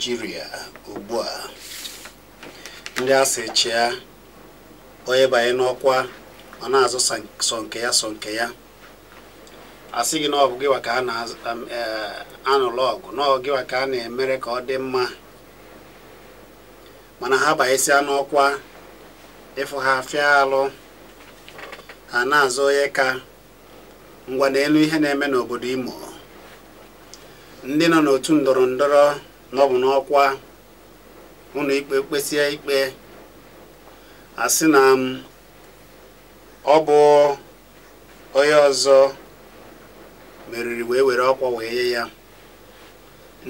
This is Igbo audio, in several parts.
naijiria ugbu a ndị a sị chịa onye banye n'ọkwa ọ na-azụ sọ nke ya sọ nke ya asị gị na ọ bụ gịwa ka a na-anụlụ um, e, ọgụ na ọ gịwa ka a na-emere ka ọ dị mma mana ha banyesịa n'ọkwa ịfụ ha afịa alụ ha na-azụ onye ka ngwa n'elu ihe na-eme n'obodo imo ndị nọ n'otu ndọrọ na bụ n'ọkwa ụlọ ikpe kpesie ikpe asị na m um, ọ bụ onye ọzọ meriri wee were ọkwa wee nye ya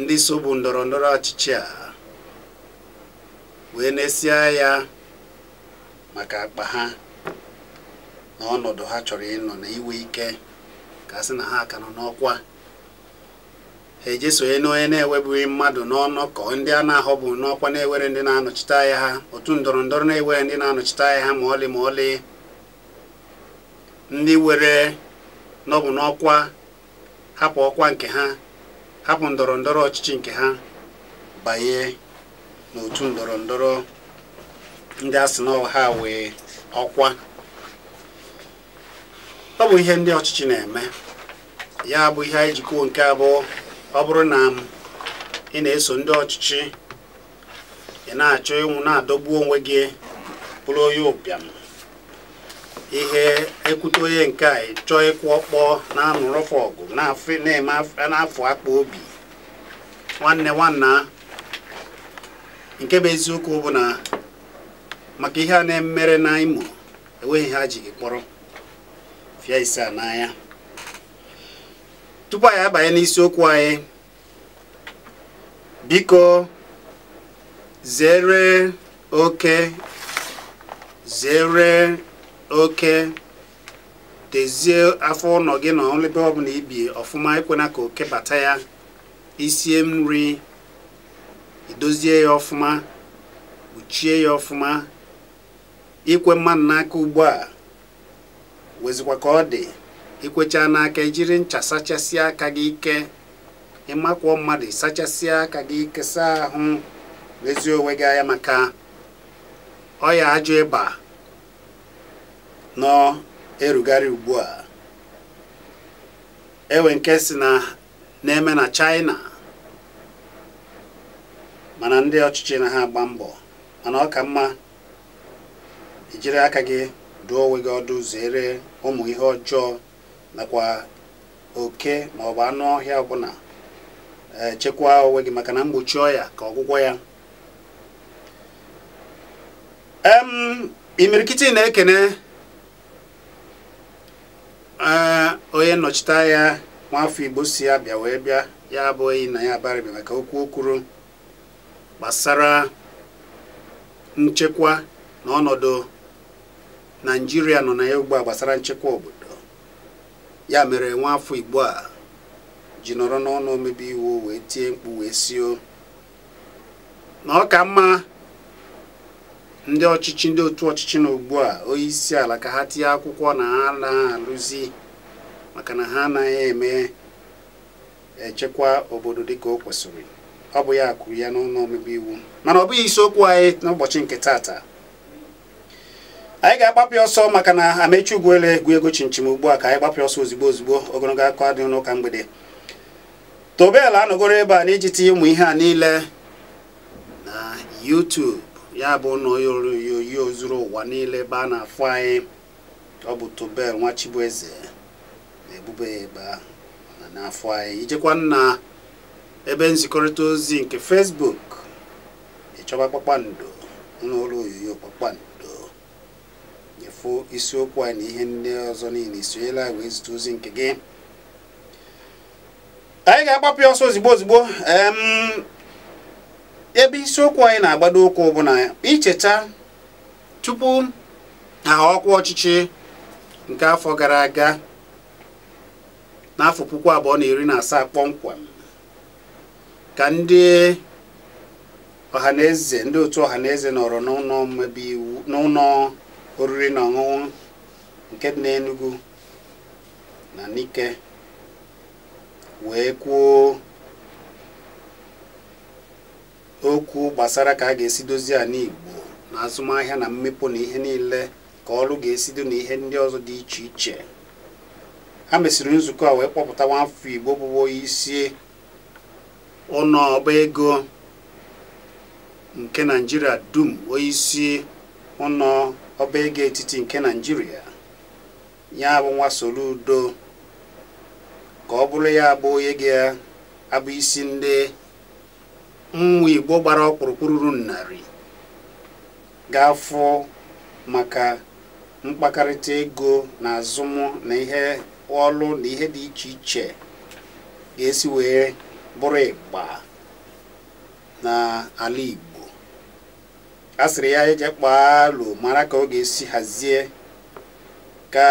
ndị sobu ndọrọ ndọrọ ọchịchị a wee na-esie ya maka akpa ha na ọnọdụ ha chọrọ ịnọ na iwe ike ka a sị na ha ka nọ n'ọkwa ha ejesonye n'onye na-ewebughị mmadụ n'ọnọkọ ndị a na-ahọbụ n'ọkwa na-ewere ndị na-anọchite anya ha otu ndọrọ ndọrọ na-ewere ndị na-anọchite anya ha ma ọlị ma ọlị ndị were n'ọbụ n'ọkwa hapụ ọkwa nke ha hapụ ndọrọ ndọrọ ọchịchị nke ha banye n'otu ndọrọ ndọrọ ndị a sị na ha wee ọkwa ọ bụ ihe ndị ọchịchị na-eme ya bụ ihe anyị jikọọ nke abụọ ọ bụrụ na ị na-eso ndị ọchịchị ị na-achọ ịnwụ na-adọgbu onwe gị bụrụ onye ụbịam ihe ekwute onye nke a chọọ ịkwụ ọkpọ na-anụrụfụ ọgụ na-eme n'afọ akpa obi nwanne nwanna nke bụ eziokwu bụ na maka ihe a na-emere na Imo enweghị ha ji gị kpọrọ fịa ise n'anya tupu anyị abanye n'isiokwu anyị biko zere oke zere oke tezie afọ ụlọ gị na ọlebe ọbụla ibi ọfụma ekwena ka oke bata ya isie nri idozie ya ọfụma kpuchie ya ọfụma ikwe mmanụ n'aka ugbu a wezikwa ka ọ dị ikwecha n'aka ijiri ncha sachasịa aka gị ike ịmakwuo mmadụ sachasia aka gị ike saa ahụ ezi onwe gị anya maka ọya ajọ ịba nọ erugharị ugbu a ewe nke si na na-eme na China mana ndị ọchịchị na ha agba mbọ mana ọ ka mma ijiri aka gị dụọ onwe gị ọdụ zere ụmụ ihe ọjọọ nakwa oke maọbụ anụ ọhịa ọbụla echekwa onwe gị maka na mgbochi ọya ka ọgwụgwọ ya imirikiti na-ekene onye nnọchite anya nwafọ igbo si ya bịa wee bịa ya abụghị na ya abarịbịa maka okwu o gbasara nchekwa na ọnọdụ naijiria nọ na ya ugbu a gbasara nchekwa obodo ya mere nwa afọ igbo a ji nọrọ n'ọnụ omebe iwu wee tie mkpu wee sio na ọ ka mma ndị ọchịchị ndị otu ọchịchị na ugbu a onye isi ala ka ha tie akwụkwọ na ha na-alụzi maka na ha anaghị eme echekwa obodo dị ka o kwesịrị ọ bụ ya kwuru ya n'ọnụ omebe iwu mana ọ bụghị isiokwu anyị n'ụbọchị nke tata anyị ga-agbapụ ọsọ maka na amechi ugwuele egwu ego chinchim ugbu a ka anyị gbapụ ọsọ ozigbo ozigbo ogologo aka dị n'ụka mgbede tobel anọgoro ebe a iji tinye ụmụ ihe a niile na yutubu ya bụ na oyoyo zuru ụwa niile ebe a na-afụ anyị ọ bụ tobel nwa chibueze na-ebube ebe na na-afụ anyị ijekwa na ebe nzikọrịta ozi nke fesbuk ịchọba kpakpando n'ụlọ oyoyo kpakpando isiokwu a na ihe ndị ọzọ niile isonyela wee zute ozi nke gị anyị ga-agbapụ ya ọsọ ozigbo ozigbo ebe isiokwu anyị na-agbado ụkwụ bụ na icheta tupu aha ọkwa ọchịchị nke afọ gara aga n'afọ puku abụọ na iri na asaa kpọmkwem ka ndị ọhaneze ndị otu ọhaneze nọrọ n'ụlọ oriri na ọṅụṅụ nke dị enugu na Nike wee kwuo okwu gbasara ka a ga-esi dozie ala Igbo na azụmahịa na mmepụ na ihe niile ka ọrụ ga-esido na ihe ndị ọzọ dị iche iche ha mesiri nzukọ a wee kpọpụta nwafọ Igbo bụ onye isi ụlọ ego nke naijiria dum onye isi ọba ego etiti nke naijiria ya bụ nwa udo ka ọ bụrụ ya bụ onye ga-abụ isi ndị nwa igbo gbara ọkpụrụkpụrụ ruru narị ga-afụ maka mkpakarịta ego na azụmụ na ihe ọlụ na ihe dị iche iche ga-esi wee bụrụ ịgba n'ala igbo asịrị ya eje kpaa mara ka ọ ga-esi hazie ka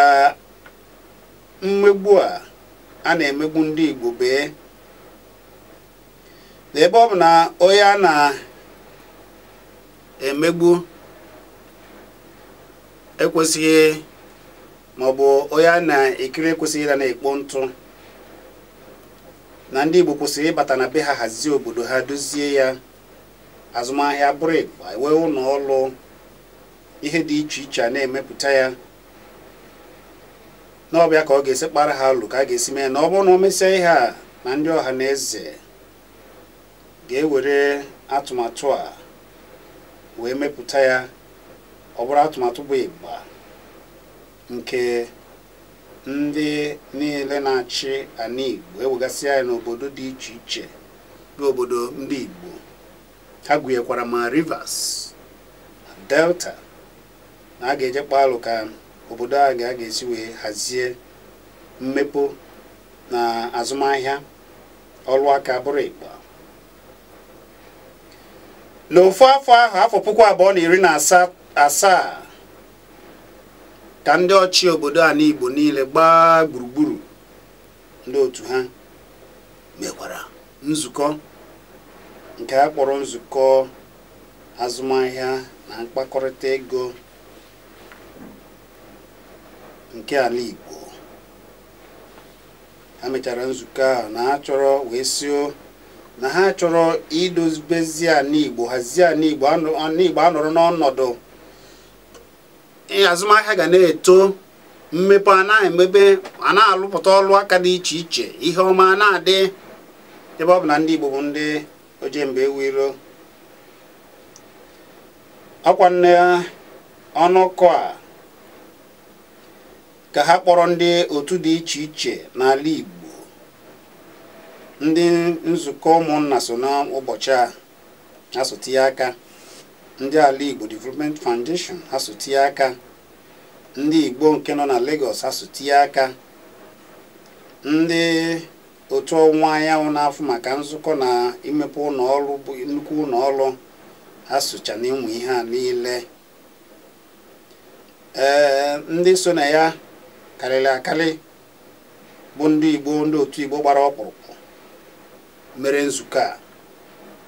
mmegbu a a na-emegbu ndị Igbo bee n'ebe ọ bụ na onye a na-emegbu ekwesịghị maọbụ onye a na-ekiri ekwesịghị ịda na-ekpo ntụ na ndị Igbo kwesịrị ịbata na be ha hazie obodo ha dozie ya azụmahịa brik enwe ụlọ ọrụ ihe dị iche iche a na-emepụta ya n'ọbịa ka ọ ga-esi kpara ha alụ ka a ga-esi mee na ọ bụrụ na o mesịa ihe a na ndị ọha na eze ga-ewere atụmatụ a wee mepụta ya ọ bụrụ atụmatụ bụ ịgba nke ndị niile na-achị ana ewegasị anyị n'obodo dị iche iche bụ obodo ndị Igbo ha gụnyekwara ma rivers delta na a ga-ejekpa alụ ka obodo a ga ga-esi wee hazie mmepe na azụmahịa ọrụ aka bụrụ ịgba. n'ofu afọ ahụ afọ puku abụọ na iri na asaa ka ndị ọchị obodo a n'igbo niile gbaa gburugburu ndị otu ha mekwara nzukọ nke a kpọrọ nzukọ azụmahịa na mkpakọrịta ego nke ala Igbo ha mechara nzukọ ahụ na ha chọrọ wee sio na ha chọrọ idozibezi ala Igbo hazie ala Igbo anọrọ n'ọnọdụ azụmahịa ga na-eto mmepe a na-emebe a na-alụpụta ọlụ aka dị iche iche ihe ọma na-adị ebe ọ bụ na ndị Igbo bụ ndị oje mgbe iro, akwa nne ọnụkọ a ka ha kpọrọ ndị otu dị iche iche n'ala Igbo ndị nzukọ ụmụnna so n'ụbọchị a ha aka ndị ala Igbo Development Foundation ha aka ndị Igbo nke nọ na Lagos ha aka ndị otu ọnwa anyanwụ na-afụ maka nzukọ na imepe ụlọ ọrụ bụ nnukwu ụlọ ọrụ ha socha na ịmụ ihe a niile ee ndị so na ya karịrị akarị bụ ndị igbo ndị otu igbo gbara ọkpụrụkpụ mere nzukọ a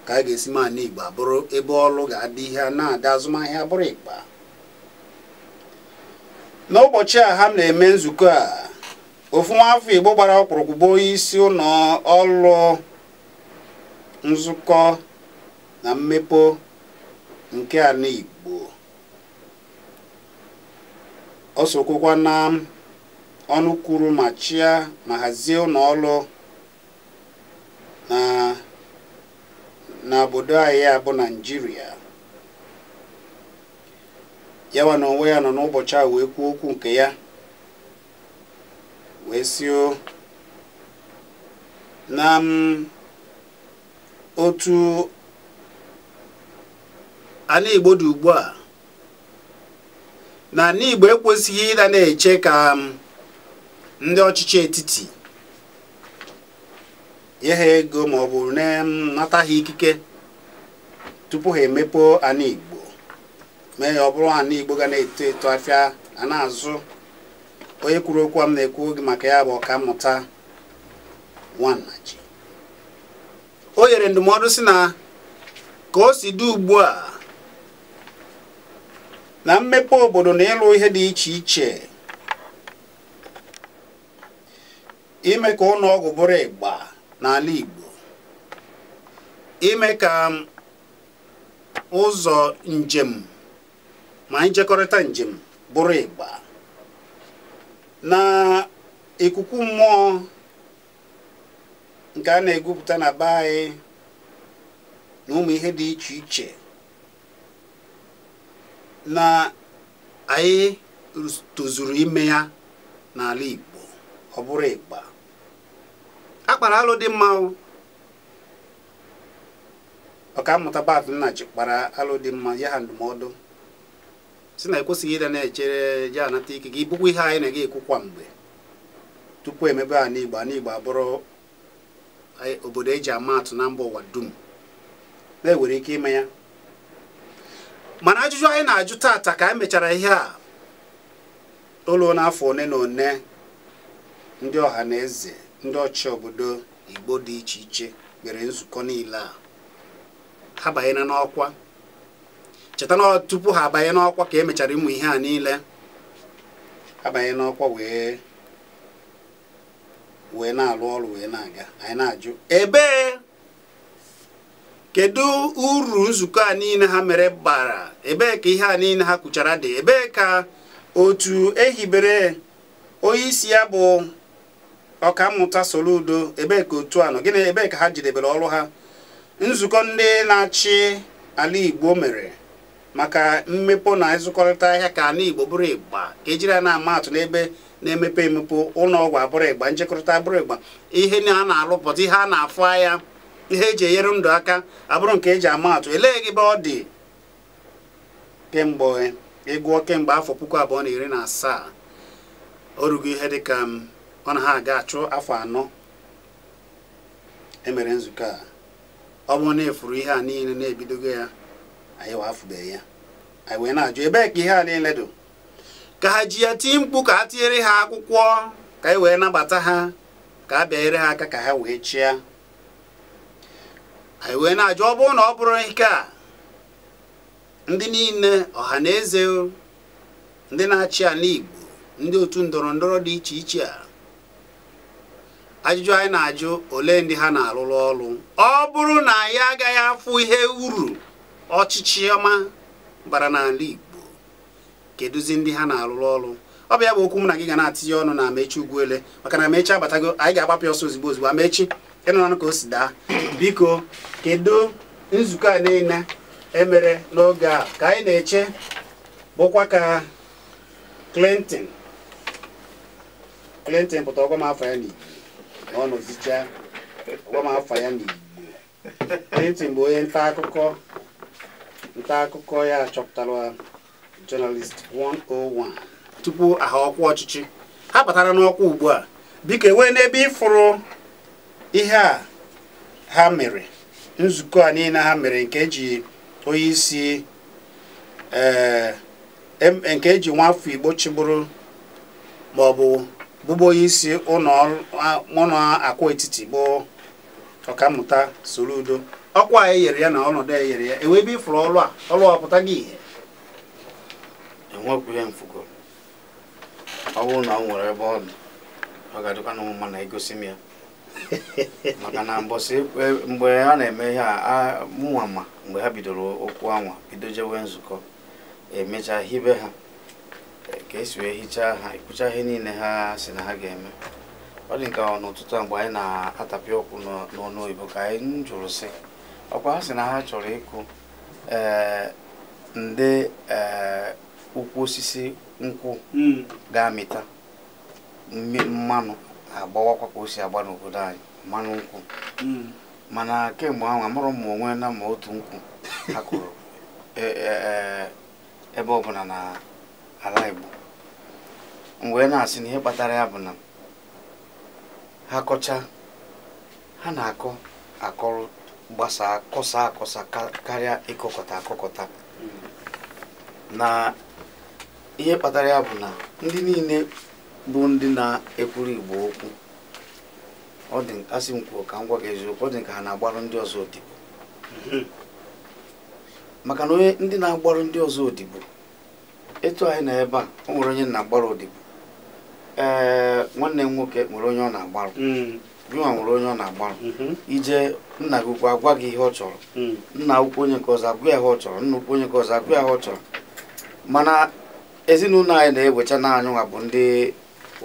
ka a ga-esi ma igbo abụrụ ebe ọrụ ga-adị ihe na-adị azụmahịa bụrụ ịkpa n'ụbọchị a ha na-eme nzukọ a ofu nwa afọ igbo gbara ọkpụrụkpụ bụ isi ụlọ ọrụ nzukọ na mmepe nke ala igbo ọ sokwukwa na ọnụ kwuru ma chịa ma hazie ụlọ ọrụ na na obodo anyị a bụ naijiria yawa na onwe ya nọ n'ụbọchị a wee kwuo okwu nke ya wee sio na otu anigbo igbo dị ugbu a na ala igbo ekwesịghị ịda na-eche ka um, ndị ọchịchị etiti nye ego ma ọ bụ um, nata ha ikike tupu ha emepe anigbo igbo mee ya ọ bụrụ ala igbo ga na-eto eto afịa na-azụ onye kwuru okwu m na-ekwu oge maka ya bụ ọka mmụta o nyere ndụmọdụ si na ka o si dị ugbu a na mmepe obodo na ịlụ ihe dị iche iche ime ka ụlọ ọgwụ bụrụ ịgba n'ala Igbo ime ka ụzọ njem ma njekọrịta njem bụrụ ịgba na ikuku mmụọ nke a na-egwupụta na be anyị na ụmụ ihe dị iche iche na anyị tozuru ime ya n'ala Igbo ọ bụrụ ịgba akpara alụ dị mma ọkammụta Bath Nnaji kpara alụ mma ya ha ndụmọdụ si na ekwesịghị na-echere je anata ike gị bụkwa ihe anyị na-aga ekwukwa mgbe tupu emebe a igbo a igbo abụrụ obodo eji ama atụ na mba ụwa dum na-ewere ike ime ya mana ajụjụ anyị na-ajụ taata ka anyị e mechara ihe a ụlọ n'afọ one na one ndị ọha na eze ndị ọchị obodo igbo dị iche iche mere nzukọ niile a ha banyere n'ọkwa cheta na tupu ha abanye n'ọkwa ka emechara ịmụ ihe a niile abanye n'ọkwa wee wee na-alụ ọrụ wee na-aga anyị na-ajụ ebee kedu uru nzukọ a niile ha mere bara ebee ka ihe a niile ha kwuchara dị ebee ka otu ehibere onye isi ya bụ ọkammuta Soludo ebee ka otu a nọ gịnị ebee ka ha jidebere ọrụ ha nzukọ ndị na-achị ala Igbo mere maka mmepụ na ịzụkọrịta ahịa ka ana igbo bụrụ ịgba ejiri ya na-ama atụ n'ebe na-emepe emepe ụlọ ọgwụ abụrụ ịgba njikọrịta abụrụ ịgba ihe a na-alụpụta ihe a na-afụ ahịa ihe eji enyere ndụ aka abụrụ nke eji ama atụ elee gị be ọ dị kemgbe ịgụọ kemgbe afọ puku abụọ na iri na asaa o rugo ihe dịka ọ na ha aga achụ afọ anọ emere nzukọ a ọ bụrụ na efuru ihe a niile na-ebidogo ya anyị wafụbeghị ya anyị wee na-ajụ ka ihe a niile dị ka ha ji ya tie mkpu ka a tinyere ha akwụkwọ ka anyị e wee nabata ha ka a bịanyere ha aka ka ha wee chịa anyị wee na-ajụ ọ bụrụ na ọ bụrụ ike a ndị niile ọha na eze ndị na-achị ala Igbo ndị otu ndọrọ ndọrọ dị iche iche a ajụjụ anyị na-ajụ ole ndị ha na-arụrụ ọrụ ọ bụrụ na anyị agaghị afụ ihe uru ọchịchị ọma bara n'ala Igbo kedụzi ndị ha na arụrụ ọrụ ọ bụ ya bụ okwu m na gị ga na-atinye ọnụ na Amechi Ugwuele maka na Amechi abatago anyị ga-agbapụ ọsọ ozugbo ozugbo Amechi ịnụnụ ka o si daa biko kedu nzukọ a niile emere n'oge a ka anyị na-eche bụkwa ka Clinton Clinton pụta ọgwa m afọ ya n'Igbo na ọ nọzicha ọgwa m afọ ya n'Igbo Clinton bụ onye nta akụkọ nta akụkọ ya achọpụtara Journalist 101 tupu aha ọkwa ọchịchị ha batara n'ọkwa ugbu a biko enwee n'ebe ịfụrụ ihe a ha mere nzukọ a niile ha mere nke eji onye isi eh, nke eji nwafọ Igbo chịbụrụ maọbụ bụbụ onye isi ụlọ akwa etiti bụ soro udo. ọkwa anyị yere ya na ọnọdụ e yere ya enwe ebe ịfụrụ ọrụ a ọrụ a pụta gị ihe enwekwu ihe mfugo ọ bụrụ na ọ nwere ebe ọ dị ọ ga-adịkwa na ụmụma na-egosi m ya maka na mbọsị e, mgbe a na-eme ihe a mụnwa ma mgbe ha bidoro okwu anwa bido jewe nzukọ emecha hibe ha e, ka esi wee hichaa ha ekpucha ihe niile ha si na ha ga-eme ọ dị nke n'ụtụtụ a mgbe anyị na-atapịa ọkwụ n'ọnụ oyibo ka anyị jụrụ sị ọkwa ha sị na ha chọrọ ịkụ eh, ndị ụkwụ eh, osisi nkwụ hmm. ga-amịta mmanụ agbawakwa ka o si agba n'obodo anyị mmanụ nkwụ hmm. mana kemgbe ahụ amụrụ m onwe na ma otu nkwụ ha kụrụ e, e, e, ebe ọbụla na ala Igbo wee na-asị na ihe kpatara ya bụ na ha kọcha ha na-akọ akọrụ gbasaa kọsa akọsa karịa ịkọkọta akọkọta hmm. na ihe kpatara ya bụ na ndị niile bụ ndị na-ekwuru igbo okwu ọ dị asị m ka m gwa gị eziokwu ọ dị ka ha na-agbarụ ndị ọzọ odibo hmm. maka na onye ndị na-agbarụ ndị ọzọ odibo etu anyị na ebe a o nwere onye na-agbarụ odibo ee nwanne m nwoke nwere onye ọ na-agbarụ gịnwa hmm. nwere onye ọ na-agbarụ ije nna gị ukwu agwa gị hmm. ihe ọ chọrọ nna ukwu onye nke ọzọ agwa ihe ọ chọrọ nna ukwu onye nke ọzọ agwa ihe ọ chọrọ mana ezinụlọ anyị na-ewecha na nwa bụ ndị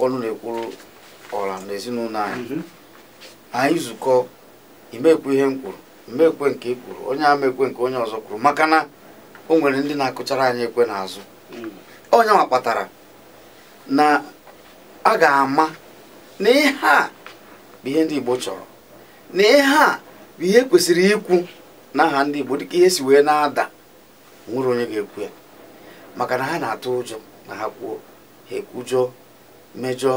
ọnụ na-ekwuru ọra na ezinụlọ anyị mhm. anyị zukọ imekwu ihe m kwuru mmekwe nke i kwuru onye ama ekwe nke onye ọzọ kwuru maka na o nwere ndị na-akụchara anyị ekwe n'azụ onye hmm. nwa kpatara na a ga-ama na ihe a bụ ihe ndị Igbo chọrọ na ihe a ihe kwesịrị ikwu n'aha ndị Igbo dịka ihe si wee na-ada nwere onye ga-ekwu ya maka na ha na-atụ ụjọ na ha kwuo ha ekwujọ mejọ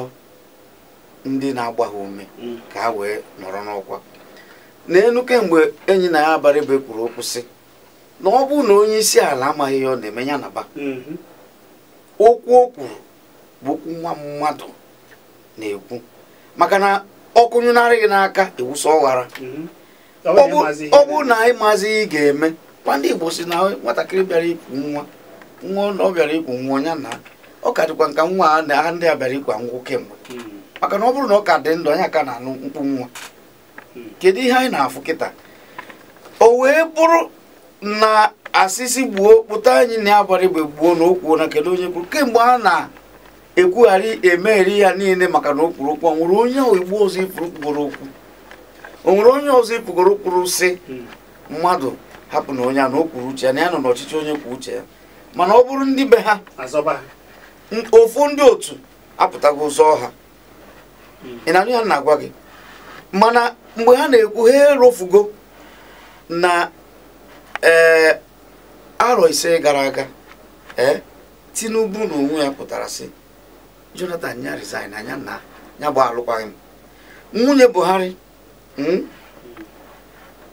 ndị na agbagha ume mm. ka ha wee nọrọ n'ọkwa n'elu kemgbe enyi na ya abalị bụ ekwuru okwu sị na ọ bụrụ na onye isi ala amaghị ya ọ na-eme ya na mm-hmm. okwu o kwuru bụ okwu nwa mmadụ na-ekwu maka na ọkụnyụnarị n'aka ewusa ọghara mm-hmm. ọ bụrụ na anyị maazị ị ga-eme kwa ndị Igbo si na nwatakịrị bịara ikwu nwa nwa ọ bịara ikwu nwa ya na ọ ka dịkwa nka nwa a ndị a bịara ikwa ngwụ kemgbe hmm. maka na ọ bụrụ na ọ ka dị ndụ anyị aka na-anụ mkpu nwa hmm. kedu ihe anyị na-afụ kịta o wee bụrụ na asịsị gbuo kpụta anyị na-agbara igbe gbuo na okwu na kedu onye kwuru kemgbe a na-ekwugharị emegheri ya niile maka na o kwuru okwu ọ nwere onye igbo ọzọ ifuru kwuru okwu o nwere onye ọzọ ị pụgoro kwuru sị mmadụ hapụ na onye a na o kwuru uche ya na ya nọ n'ọchịchị onye kwuru uche ya mana ọ bụrụ ndị be ha ofu ndị otu apụtago ụzọ ọha hmm. ị na-anụ ya na-agwa gị mana mgbe ha na-ekwu ha erofugo na ee eh, arọ ise gara aga ee eh, tinubu na onwe ya pụtara sị jonathan ya resign anya na ya bụ alụkwaghị m nwunye buhari Hmm?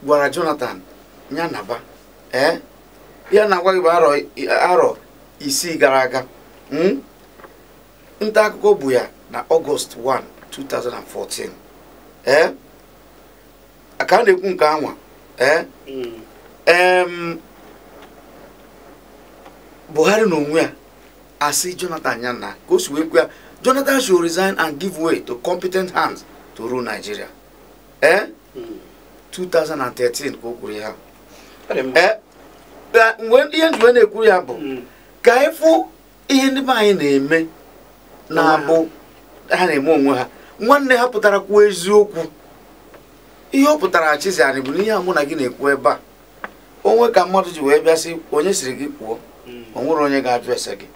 gwara jonathan ya naba ee eh? ya na agwaghị bụ aro isii gara aga hmm? nta akụkọ bụ ya na ọgọst 1 2014 ee ka a na-ekwu nke anwa ee eh? buhari na onwe a asị jonathan ya na ka o si wee kwe ya jonathan should resign and give way to competent hands to rule nigeria Eh? Hmm. ee 2013 ka o kwuru ya eh? ihe njiwe na-ekwuru ya bụ hmm. ka efu ihe ndị be anyị na-eme na-abụ ha na-eme onwe ha nwanne ha pụtara kwuo eziokwu ihe ọ pụtara anyị bụ ihe mụ na gị na-ekwu ebe a onwe ka mmadụ ji wee bịa sị onye siri gị kwuo hmm. o onye ga-ajụ ese gị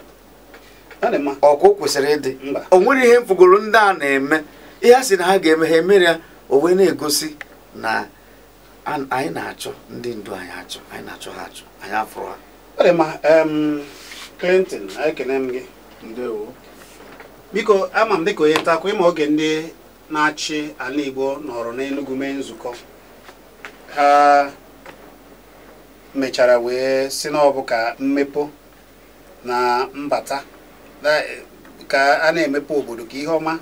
ọkụ kwesịrị ịdị o nwere ihe mfugoro ndị a na-eme ihe a sị na ha ga-eme ha emere ya o wee na-egosi na anyị na-achọ ndị ndu anyị achọ anyị na-achọ ha achọ anyị afụrụ ha ma Clinton ekene m gị ndewo biko ama m dịka onye ntakwa ịma oge ndị na-achị ala Igbo nọrọ n'Enugwu mee nzukọ ha mechara wee si n'ọbụ ka mmepe na mbata ka a na-emepe obodo ka ihe ọma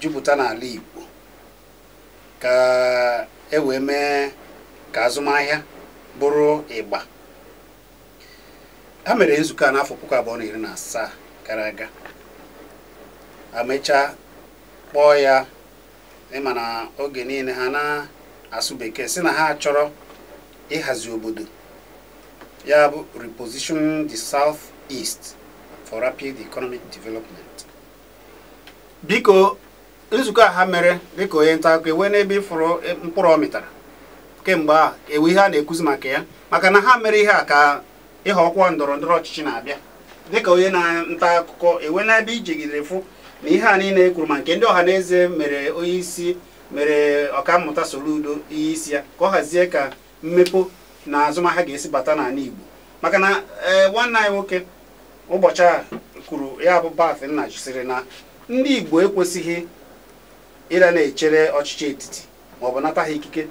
jupụta n'ala Igbo ka e wee mee ka azụmahịa bụrụ ịgba ha mere nzukọ a n'afọ puku abụọ na iri na asaa gara aga amechaa kpọọ ya ịma na oge niile ha na-asụ bekee si na ha chọrọ ịhazi obodo ya bụ reposition the South East for rapid economic development biko nzukọ a ha mere dịka onye nta akụkọ ewe n'ebe ịfụrụ mkpụrụ ọ mịtara kemgbe a ewe ihe a na ekuzi maka ya maka na ha mere ihe a ka ịghọ ọkwa ndọrọ ndọrọ ọchịchị na-abịa dịka onye na-nta akụkọ ewe n'ebe ijigidere fụ na ihe a niile e ma nke ndị ọha na eze mere onye isi mere ọkammụta Soludo ihe isi ya ka ọ hazie ka mmepo na azụmahịa ga-esi bata n'ala Igbo maka na e, nwanne anyị nwoke ụbọchị a kwuru ya bụ Bafin nna jụsịrị na ndị Igbo ekwesịghị ịra na-echere ọchịchị etiti maọbụ nata ha ikike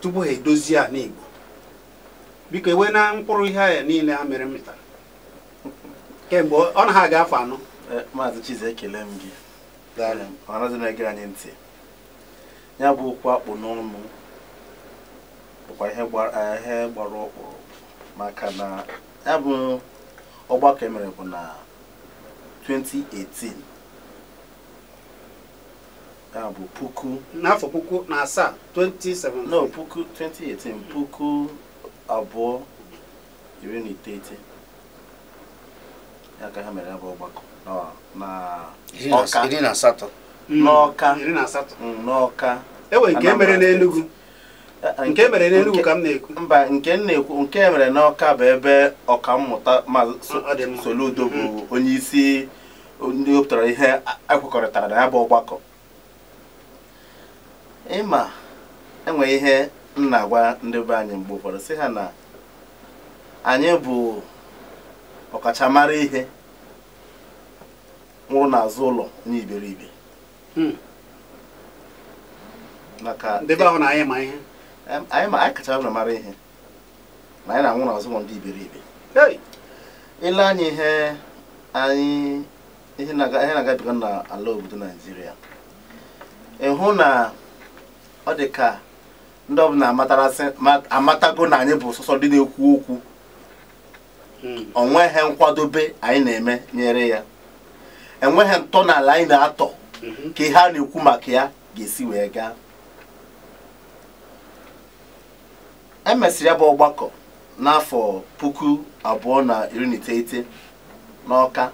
tupu ha edozie a n'igbo biko enwee na mkpụrụ ihe ahịa niile a mere mịtara kemgbe ọ na ha ga-afọ anọ e, maazị Chize ekele m gị ọnazi na-ege anyị ntị ya bụ okwu akpụ n'ọnụ bụkwa e, ihe gbara ọkpụrụ maka na ya bụ ọgbakọ emere bụ na 2018 ya bụ puku n'afọ puku na asaa 2017 no puku 2018 puku abụọ iri na iteghete ya ka ha mere ya bụ ọgbakọ n'ọka iri na asatọ mm, n'ọka iri na asatọ mm, n'ọka ewe nke e e mere n'enugu nke mere n'enugu ka m na-ekwu mba nke m na-ekwu nke e mere n'ọka bụ ebe ọkammụta Soludo bụ mm-hmm. onye isi ndị wepụtara ihe ekwekọrịtara na ya bụ ọgbakọ ịma enwe ihe m na-agwa ndị be anyị mgbe ụfọdụ sị ha na anyị bụ ọkachamara ihe nwụrụ n'azụ ụlọ onye iberibe hmm. maka ndị ahụ na anyị ma ihe anyị kacha mara ihe na anyị na-anwụ n'azụ ụlọ ndị iberibe ile anyị ihe anyị ihe na-agabiga n'ala obodo naijiria ịhụ na ọ dị ka ndị ọbụla amatago na anyị bụ sọsọ dị na-ekwu okwu onweghị hmm. nkwadobe anyị na-eme nyere ya enweghị n'ala anyị na-atọ hmm. ka ihe a na-ekwu maka ya ga-esi wee gaa emesịrị ya bụ ọgbakọ n'afọ puku abụọ na iri na iteghete n'ọka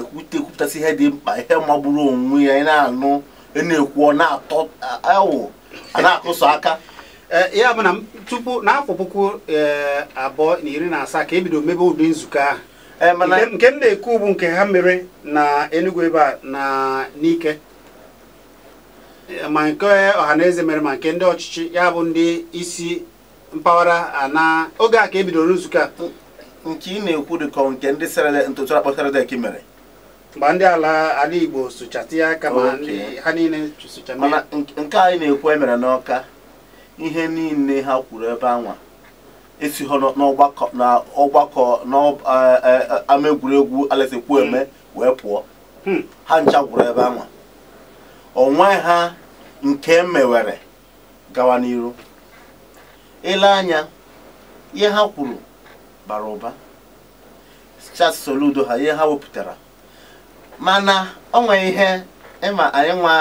ekwupụtasị ihe dị mkpa ihe magburu onwe ya anyị na-anụ na-ekwu na-atọ awụ na-akụsọ aka eh, ya bụ na tupu n'afọ puku eh, abụọ na iri na asaa ka ebido mebe ụdị nzukọ ahụ eh, nke m na-ekwu bụ nke ha mere na Enugu ebe a na n'ike ma nke ọha na eze mere ma nke ndị ọchịchị ya bụ ndị isi mpaghara ana oge a ka ebidoro nzukọ a nke ị na-ekwu dịkọ nke ndị sere ntụtụ akpọsara dek mere mgbe ndị ala ala Igbo sụchata ya aka ma ha niile mana nke anyị na-ekwu emere n'ọka ihe niile ha kwuru ebe anwa esi ha n'ọgbakọ na n'ama egwuregwu Alex hmm. eme wee pụọ hmm. ha ncha kwuru ebe anwa onwe ha nke e mewere gawa n'iru ile anya ihe ha kwuru bara ụba soludo ha ihe ha wepụtara mana o nwere ihe ịma anyị nwa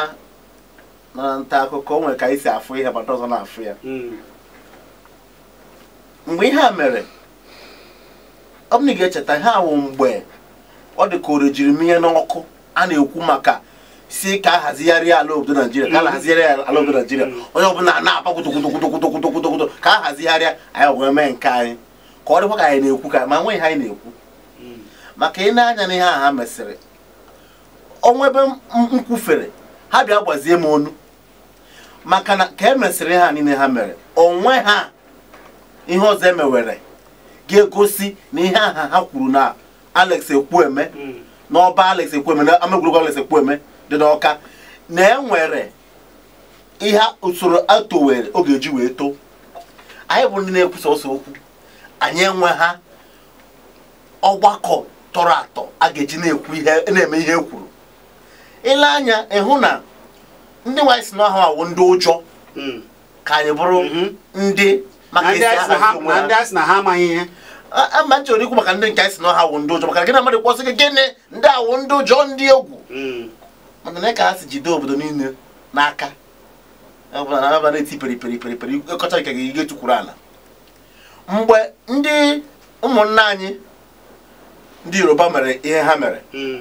na nta akụkọ o nwere ka anyị si afụ ihe gbata ọzọ na-afụ ya mm. mgbe ihe a mere ọ na ị ga-echeta ihe awụ mgbe ọ dị ka ore jiri n'ọkụ a na-ekwu maka si ka a hazigharị ala obodo naijiria ka a mm. hazigharị ala obodo naijiria mm. onye ọbụla na-aba kwutokwotokwutokwutokwutokwuto ka a hazigharịa anyị wee mee nke anyị ka ọ dịkwa ka anyị na-ekwu ka ma nweghị anyị na-ekwu maka ị na-anya n'ihe a ha mesịrị ọnwa ebe m ha bịa gbazie m onu maka na ka e mesịrị ha niile ha mere onwe ha ihe ọzọ emewere ga-egosi na ihe aha ha kwuru na Alex Ekwueme hmm. n'ọba Alex eme na ama egwuregwu Alex eme dị n'Ọka na enwere ihe usoro atowere oge eji wee too anyị bụ ndị na-ekwusa ọsọ okwu anyị enwe ha ọgbakọ tọrọ atọ a ga-eji na-eme ihe e kwuru ele anya ịhụ na ndị nwaanyị si n'ahụ awụ ndị ụjọ hmm. ka anyị bụrụ mhm. ndị maka esi na ha amaghị ihe ama nchọrọ ikwu maka ndị nke anyị si n'ọha awụ ndị ụjọ maka gịnị mmadụ kwọsị gị gịnị ndị awụ ndị ụjọ ndị egwu hmm. mana na ka ha si jide obodo niile n'aka ọbụla na-eti peri peri peri peri ịkọcha nke gị tukwuru ala mgbe ndị ụmụnna anyị ndị yoruba mere ihe ha mere hmm.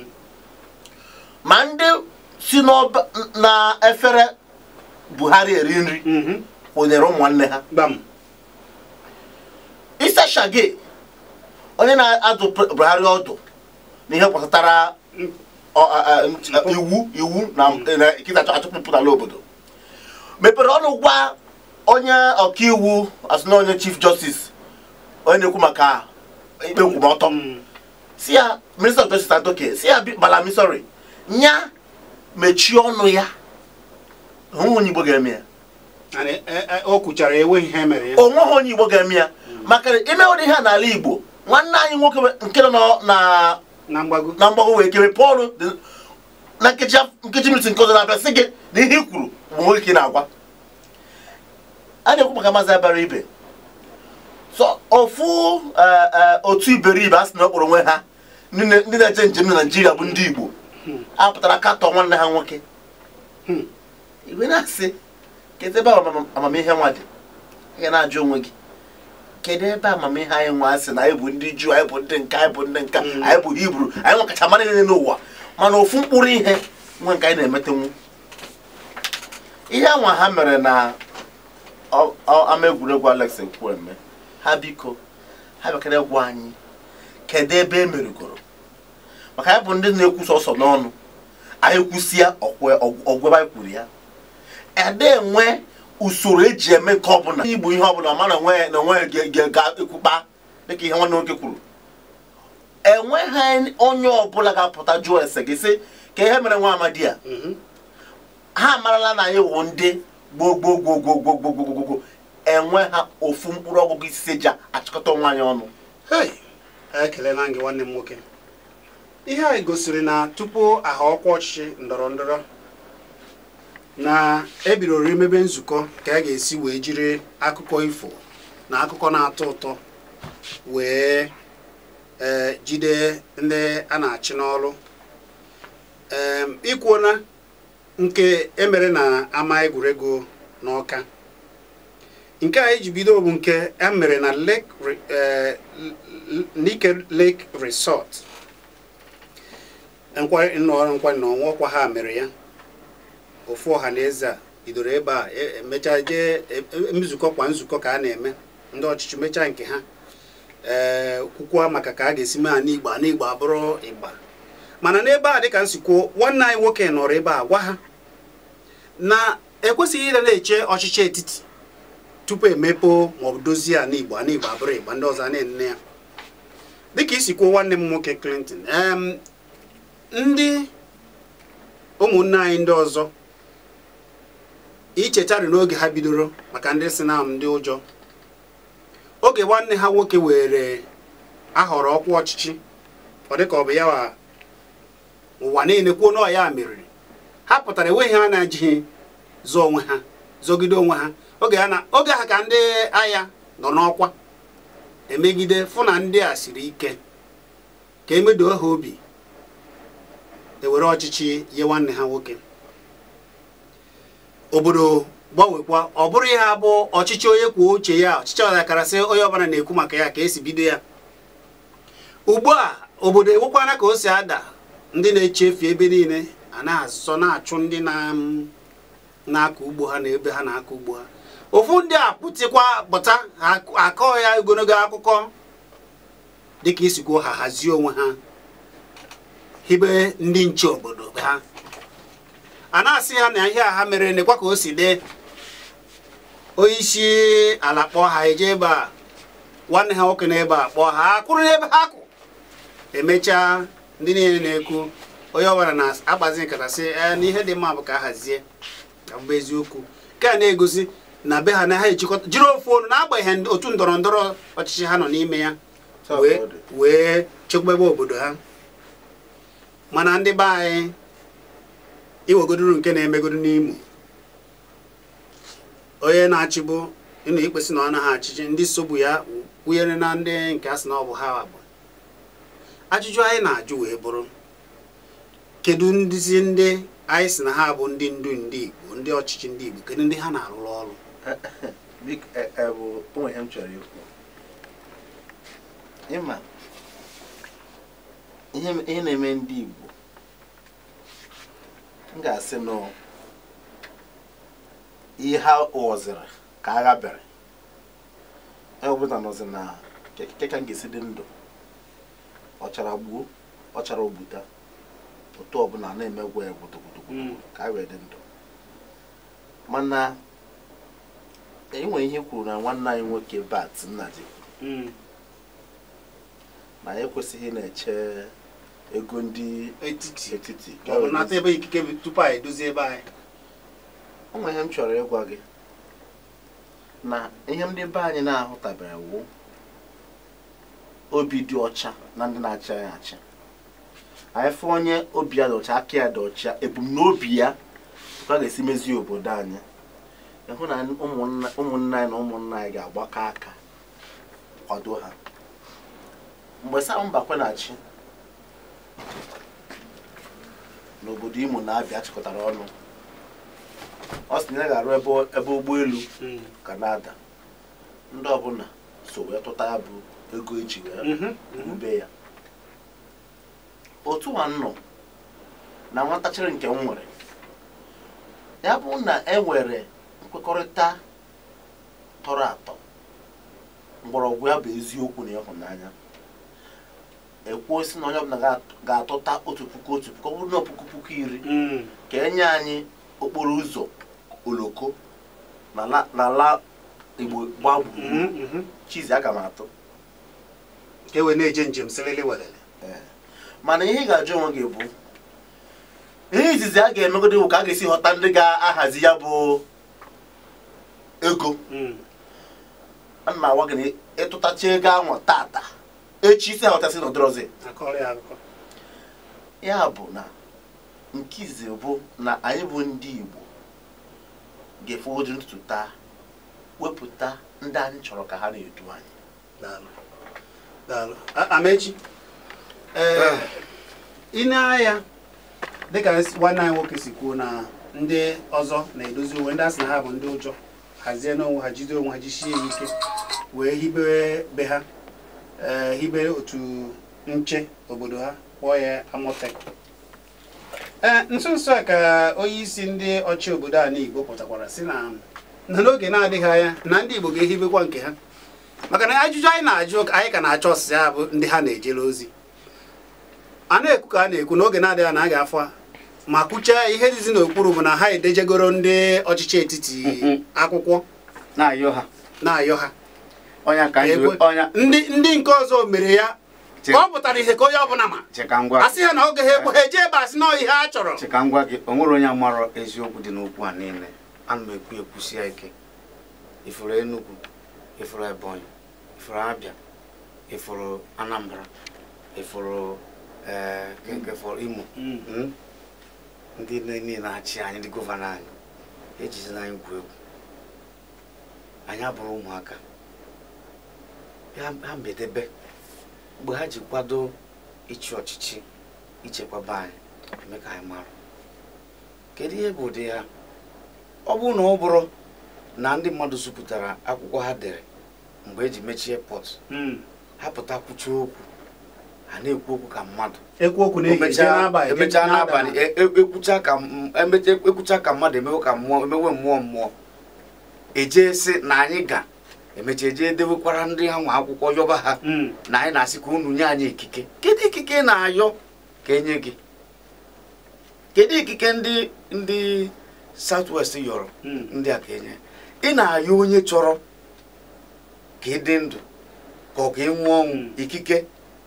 ma ndị si na efere buhari eri nri mhm. onyere ụmụnne ha isa shage onye na-adụ buhari ọdụ n'ihe gbasatara mm. iwu iwu na mm. kịtacha achụpụpụtala obodo mepere ọnụ gwa onye ọkaiwu asụna onye chief justice onye na-ekwu maka ikpe nkwụmọtọ mm. si ya minista of justice adoke si ya bala misori nya mechie ọnụ ya onwe Igbo ga-eme ya e, e, onweghị e onye Igbo ga-eme ya maka ime ụdị ha n'ala Igbo nwanne anyị nwoke nke nọ na mgbago wee kere Pọl na nkeji minit nke ọzọ na-abịa sị gị na ihe i kwuru bụ nwoke na-agwa a na-ekwu maka maazị abara ibe so ofu eh, eh, otu iberibe a sị na ọ kpọrọ onwe ha ndị na-eje njem na Naịjirịa bụ ndị Igbo a pụtara katọ nwanne ha nwoke hmm. igwe na-asị kedu ebe amamihe nwa dị ị na-ajụ onwe gị kedu ebe amamihe anyị nwa asị na anyị bụ ndị juu anyị bụ ndị nka anyị bụ ndị nka hmm. anyị bụ hibru anyị ọkachamara niile n'ụwa mana ofu mkpụrụ ihe nwe nke anyị na-emetenwu ihe anwa ha mere na ama egwuregwu Alex Nkwueme ha biko ha bịakara gwa anyị kedu ebe emerugoro maka ya bụ ndị na-ekwusa ọsọ n'ọnụ anyị kwusịa ọgwụba anyị kwuru ya ede enwe usoro eji eme nke ọbụla igbu ihe ọbụla ma na onwe ga-ekwukpa dịka ihe nwanne nwoke kwuru enweghị onye ọbụla ga-apụta jụọ ese gị sị ka ihe mere nwa amadi ya mm-hmm. ha amarala na anyị wụ ndị gboo gboo gboo gboo gboo enwe ha ofu mkpụrụ ọgụgụ isi ji achịkọta onwe anyị ọnụ nwanne m nwoke ihe anyị gosiri na tupu aha ọkwa ọchịchị ndọrọ ndọrọ na ebidoro imebe nzukọ ka a ga-esi wee jiri akụkọ ifo na akụkọ na-atọ ụtọ wee e, jide ndị a na-achị n'ọrụ e, ikwuona nke emere na ama egwuregwu n'ọka nke anyị ji bido bụ nke emere na Lake e, Nike Lake Resort nkwanye nkwanye na ọkwa ha mere ya ofu ọha na eze a bidoro ebe a emechaa e, jee e, e, nzukọ kwa nzukọ ka a na-eme ndị ọchịchị mechaa nke ha ee kwukwa maka ka a ga-esi mee a n'igbo na abụrụ igba mana n'ebe a dịka nsikwuo nwanne anyị nwoke nọrọ ebe a gwa ha na ekwesịghị ịda na-eche ọchịchị etiti tupu emepe maọbụ dozie a n'igbo ana abụrụ igba ndị ọzọ a na ya dịka isi nwanne m nwoke Clinton ndị ụmụnne anyị ndị ọzọ ichetari n'oge ha bidoro maka ndị si na ndị ụjọ oge nwanne ha nwoke were ahọrọ ọkwa ọchịchị ọ dịka ọ bụ ya wa ụwa niile kwuo na ya meriri ha pụtara enweghị ha na-ejighị zụọ onwe ha zọgide onwe ha oge ha ka ndị agha nọ n'ọkwa emegide fụ na ndị a siri ike ka emedo ha obi ewere ọchịchị nye nwanne ha nwoke obodo gbanwekwa ọ bụrụ ihe abụ ọchịchị onye kwuo uche ya ọchịchị ọdakarasị onye ọbara na-ekwu maka ya ka esi bido ya ugbu a obodo enwekwana ka o si ada ndị na-echefu ebe niile a na na-achụ ndị na-akọ ugbo ha na ebe ha na-akọ ugbo ha ofu ndị a pụtịkwa pụta akọ ya ogologo akụkọ dịka isi ha hazie onwe ha hibe ndị nche obodo ha a na-asị ha na ihe a ha mere n'ekwa ka o si dị onyeisi ala kpọọ ha eje ebe a nwanne ha nwoke na ebe a kpọọ ha akwụrụ n'ebe ha kwụ emechaa ndị niile na-ekwu onye ọbara na-akpazi nkata sị ee ihe dị mma bụ ka a hazie ka mbụ eziokwu nke a na-egosi na be ha na ha ejikọta jiri ofu ọnụ n'agbanyeghị otu ndọrọ ndọrọ ọchịchị ha nọ n'ime ya wee ebe obodo ha mana ndị be anyị iwegoduru nke na-emegodu n'Imo onye na-achịbụ ịnụ ikpesị na ọ naghị achịchị ndị sobu ya kwunyere na ndị nke asị na ọ bụ ha bụ ajụjụ anyị na-ajụ wee bụrụ kedu ndịzi ndị anyị si na ha bụ ndị ndu ndị Igbo ndị ọchịchị ndị Igbo kedu ndị ha na-arụrụ ọrụ e, e, e, ihe na-eme ndị Igbo m ga-asị na ihe ha ka agha bịara ewepụta na keke ka m ga dị ndụ ọchara gbuo ọchara obuta otu ọbụla na-emegwa ya gbutugbutugbutu hmm. ka a dị ndụ mana enwere ihe kwuru na nwanne anyị nwoke bat nna hmm. na ekwesịghị na-eche ego ndị etiti ọ ebe ikike tupu anyị edozie ebe anyị ọnwa ihe m chọrọ ịgwa gị na ihe ndị be anyị na-ahụtabere obi dị ọcha na ndị na-achị anyị achị anyị fụ onye obi ya dị ọcha aka ya dị ọcha ebumnobi ya ka a ga-esi mezie obodo anyị ịhụ na ụmụnna anyị na ụmụnna anyị ga-agbakọ aka kwado ha mgbe Sam Mbakwe na-achị n'obodo Imo na Abia chịkọtara ọnụ ọ sị na ya ga-arụ ebe ụgbọelu hmm. Kanada ndị ọbụla so wee tụta ya bụ ego eji wee wube mhm, mhm. ya otu a nọ na nwatachiri nke nwere ya bụ na e nwere nkwekọrịta tọrọ atọ mgbọrọgwụ ya bụ eziokwu na ịhụnanya ekwuo si na onye ọbụla ga-atụta otu puku otu puku ọ bụrụ na puku puku iri mm. ka enye anyị okporo ụzọ oloko n'ala igbo gbaa mm-hmm, mm-hmm. chizi aga m atụ e na-eje njem mana ihe ị ga-ajụ onwe gị bụ ihe izizi a ga-emegodo bụ ka a ga-esi ghọta ndị ga-ahazi ya bụ ego mm. A na agwa gị na ịtụtacha ego ahụ tata echi isi aghọtasị na ọdịrọzi ya bụ na nkizi bụ na anyị bụ ndị Igbo ga-efe oji ntụtụ taa wepụta ndị anyị chọrọ ka ha na-edu anyị Amechi ah. ị na-anya dịka nwanne anyị nwoke si kwuo na ndị ọzọ na-edozi uwe ndị asị na ha bụ ndị ụjọ hazie n'onwe ha jide onwe ha jisie ya ike wee hibe be ha Eh, hibere otu nche obodo ha kpọọ ya Amotec ee eh, nso nso a ka onye isi ndị ọchị obodo ala Igbo pụtakwara si na na n'oge na-adịghị anya na ndị Igbo ga-ehibekwa nke ha maka na ajụjụ anyị na-ajụ anyị ka na-achọ ọsịsị ha bụ ndị ha na-ejere ozi a na-ekwu ka a na-ekwu n'oge na-adịghị na a ga-afọ ma kwụchaa ihe dịzi n'okpuru bụ na ha edejegoro ndị ọchịchị etiti mm-hmm. akwụkwọ na-ayọ ha ka anyị ndị ndị nke ọzọ mere ya ọ pụtara ihe ka onye ọbụla ma asị ha na oge ha ekwe ha eji ebe asị na ihe a chọrọ Chikangwa ngwa gị o nwere onye mara eziokwu dị n'okwu a niile ana m ekwu ekwusi ya ike ifuru Enugu ifuru Ebonyi ifuru Abia ifuru Anambra ifuru eh, Imo mm. hmm? ndị niile na-achị anyị ndị gọvanọ anyị ejizina anyị gwu egwu anyị abụrụ ụmụaka ha mbedebe mgbe ha ji kwado ịchị ọchịchị ichekwaba anyị eme ka anyị mara kedu ihe bụ ụdị ya ọ bụrụ na ọ bụrụ na ndị mmadụ sopụtara akwụkwọ ha dere mgbe e ji mechie pọt hmm. ha pụta kwuchie okwu ha na-ekwu okwu ka mmadụ emechaa e, e, e, ekwucha ka mmadụ emewe ka mmụọ mmụọ mmụọ ejee na anyị ga emecha eje dewekwara ndị ha nwa akwụkwọ yọba ha hmm. na anyị na-asị ka unu nye anyị ikike kedu ikike na-ayọ ka enye gị kedu ikike ndị ndị south west yọrọ hmm. ndị a ka enye ị na-ayọ onye chọrọ ka ị dị ndụ ka ọ ka ị nwụọ ọnwụ hmm. ikike